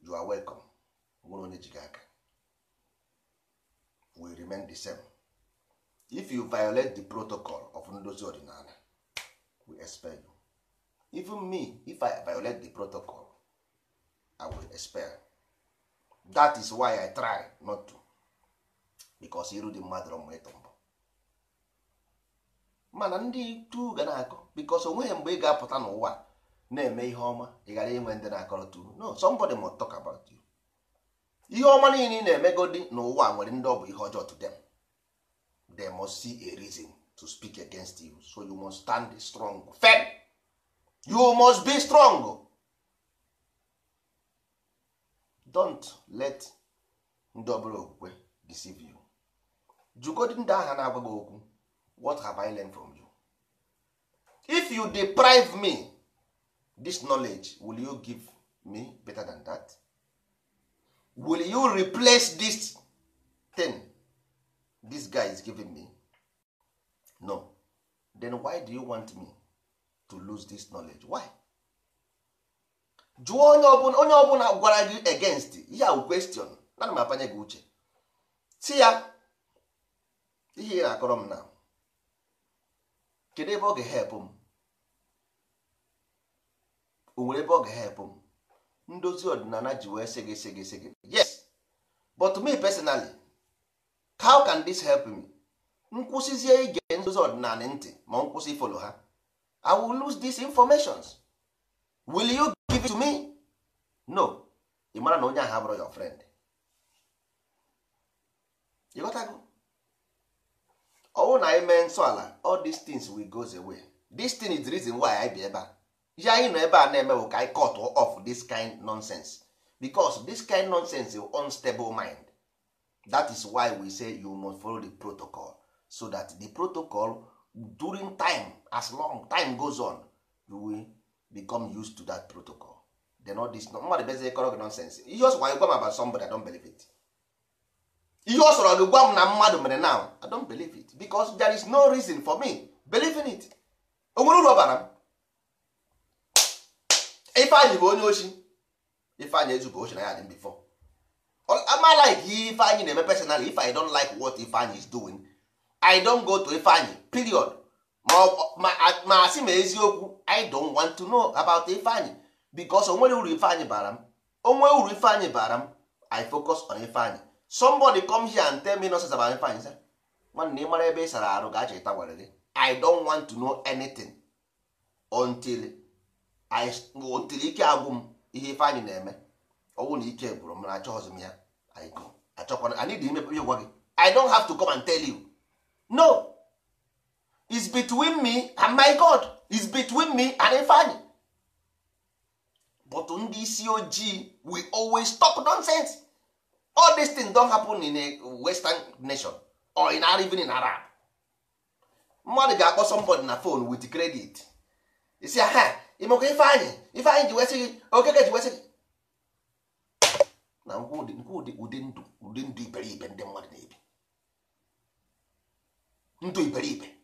[SPEAKER 1] you are welcome nwere onye ji gị aka we remain the same if you violate the protocol of ndozi ọdịnala we expel you even me if i violate the protocol i will expel that is why i try not to because iru dị mmadụ rọ mgbe ịtụ mbọ mana ndị tu ga na-akọ because onweghị mgbe ị ga-apụta n'ụwa na-eme ihe ọma ị ghara inwe ndị na-akọrọ tu no somebody must talk about you ihe ọma niile ị na-emegodi n'ụwa nwere ndị ọ bụ ihe ọjọọ to them they must see a reason to speak against you so you must stand strong firm you must be strong don't let ndị obere okwukwe deceive you jugodi ndị agha na-agwa gị okwu what have I learned from you if you deprive me this knowledge will you give me better than that will you replace this thing this guy is giving me no then why do you want me to lose this knowledge why jụọ onye ọbụla onye ọbụla gwara gị against ya question ana m apanye gị uche si ya ihe akọrọ m na kedu ebe ọ ga-ehepụ m o nwere ebe ọ ga-ehepụ m ndozi ọdịnala ji wee sị gị sị yes but me personally how can this help me nkwụsịzie ige ndozi ọdịnala ntị ma m kwụsị ifolo ha i will lose these informations will you give it to me no ị mara na onye ahụ abụrụ your friend ịghọtago ọwụ na anyị mee nsọ ala all these things will go away this thing is the reason why I be ebe a ihe anyị nọ ebe a na ka anyị cut off this kind nonsense because this kind nonsense is unstable mind that is why we say you must follow the protocol so that the protocol during time as long time goes on you will become used to that protocol then all this mmadụ bezie kọrọ gị nonsense ihe ọsọ wanyị gwa m about somebody I don't believe it ihe ọ sọrọ gị gwa m na mmadụ mere now i don't believe it because there is no reason for me believing it onwere uru ọbara m ifeanyị bụ onye ochi ifeanyị ezubụ ochi na ya dị before ama like ihe ifeanyị na-eme personally if i don't like what ifeanyị is doing i don't go to ifeanyị period ma asị m eziokwu i don want to know about ifeanyị because onwere uru ifeanyị bara m onwe uru ifeanyị bara m i focus on ifeanyị somebody come here and tell me nonsense about fine sir nwanne ị mara ebe ị sara arụ ga-achọ ịta gwara gị i don want to know anything until I until ike agwụ m ihe ife anyị na-eme ọnwụ na ike gwụrụ m na achọghịzi m ya I go achọkwana anyị dị imepe gwa gị I don have to come and tell you no is between me and my God is between me and Ifeanyi but ndị isi ojii we always talk nonsense all these things don happen in a western nation or in even in arab mmadụ ga-akpọ somebody na phone with credit isi ha imekwa ifeanyị ifeanyị ji wesị okeke ji wesị na ngwa ụdị ndụ ụdị ndụ iberibe ndị mmadụ na-ebi ndụ iberibe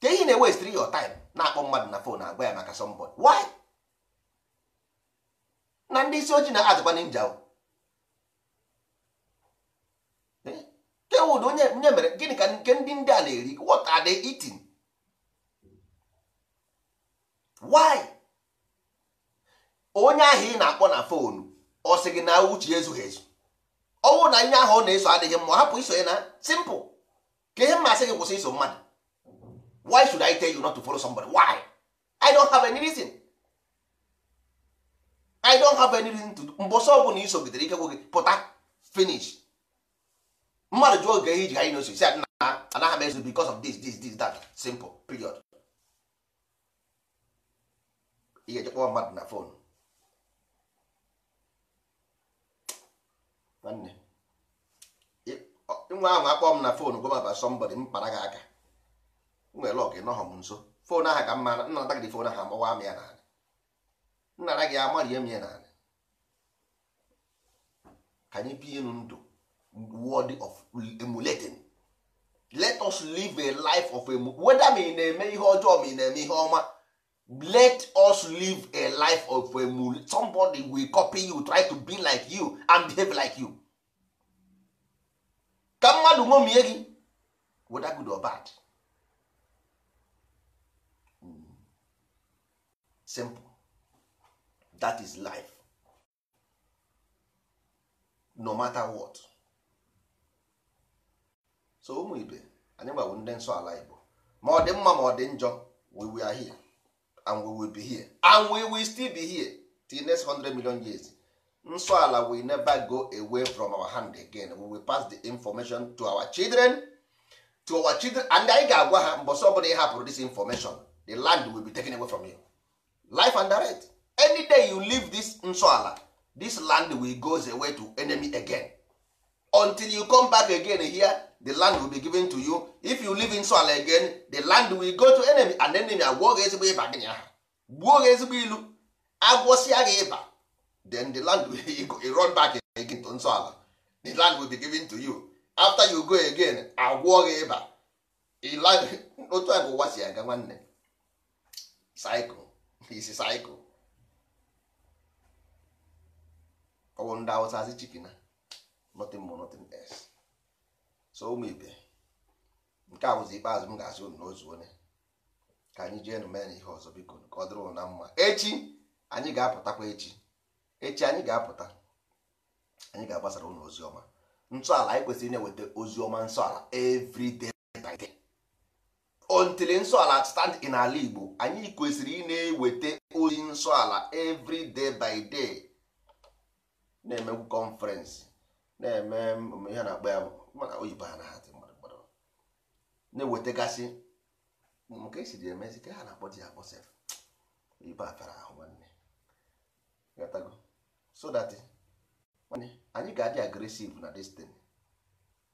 [SPEAKER 1] ka ihe na-ewestri your time na-akpọ mmadụ na phone agwa ya maka somebody why na ndị isi ojii na n'inja njawo nke wud onye mere gịnị ka nke ndị ndị a na-eri what are they eating why onye ahụ ị na-akpọ na fonu ọ sị gị na uche ezughị ezu ọnwụ na ihe ahụ ọ na-eso adịghị mma hapụ iso ya na simple ka ihe mmasị gị kwụsị iso mmadụ why should I tell you not to follow somebody why I don't have any reason I don't have any reason to mbọsọ ọbụla gidere ike gwụ gị pụta finish mmadụ jụọ oge iji anyị n'osi si adị na anaghị m ezu because of this this this that simple period ihe jekpọọ mmadụ na fon nwanne nwa ahụ akpọ m na fon gwa maba sọmbọdị m para gị aka nwere lọk nọhọ m nso fon aha ka mma nna ada gị fon ahụ amawa m ya n'ala nna gị amarie m ya n'ala ka anyị bie enu ndụ word of emulating let us live a life of whether weda ị na-eme ihe ọjọọ ma ị na-eme ihe ọma let us live a life of emulating somebody will copy you try to be like you and behave like you ka mmadụ ṅomie gị whether good or bad hmm. simple that is life no matter what so ụmụ ibe anyị gbagbụ ndị nsọ ala igbo ma ọ dị mma ma ọ dị njọ we are here and we will be here and we will still be here till next 100 million years nsọ ala will never go away from our hand again we will pass the information to our children to our children and anyị ga-agwa ha but ọbụla ị hapụrụ this information the land will be taken away from you life and direct any day you leave this nsọ ala this land will goes away to enemy again until you come back again here the land will be given to you if you live in soil again the land will go to enemy and enemy agwọ gị ezigbo ịba gị nyaha gbuo gị ezigbo ilu agwọsịa gị ịba then the land will run back again to nsọ ala the land will be given to you after you go again agwọ gị ịba otu a ka ụwa si aga nwanne cycle isi cycle ọwụ ndị awụsa asị chikina nothing more nothing else so ụmụ ibe nke a bụzi ikpeazụ m ga-asị unu n'ozu onye ka anyị jee mee na ihe ọzọ biko ka ọ dịrị na mma echi anyị ga-apụtakwa echi echi anyị ga-apụta anyị ga-agbasara unu ozi ọma ntọala anyị kwesịrị na-eweta ozi ọma nsọala every day by day until nsọala stand in ala Igbo anyị kwesịrị ị na-eweta ozi nsọala every day by day na-emegwu conference na-eme ihe na-akpọ ya maka oyibo ha na hazi mmadụ na-ewetagasị nke esiri emezi ka ha na-akpọ di akpọ sef oyibo afara ahụ nwanne gatago so that nwanne anyị ga-adị agresive na destiny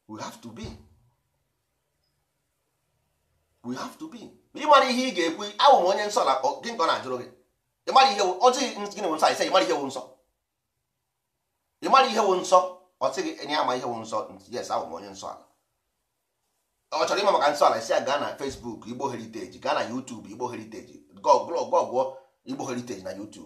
[SPEAKER 1] we have to be we have to be Ị ịmara ihe ị ga-ekwu awụ m onye nsọ na gị nke ọ na-ajụrụ gị ịmara ihe ọjị gịnị bụ nsọ anyị sị ịmara ihe wụ nsọ ịmara ihe wụ nsọ ọ si gị enye ama ihe nwụ nsọ yes ahụ onye nsọ ala ọ chọrọ ịma maka nsọ ala si ya gaa na Facebook Igbo Heriteji gaa na YouTube Igbo Heritage gụọ igbo Heriteji na YouTube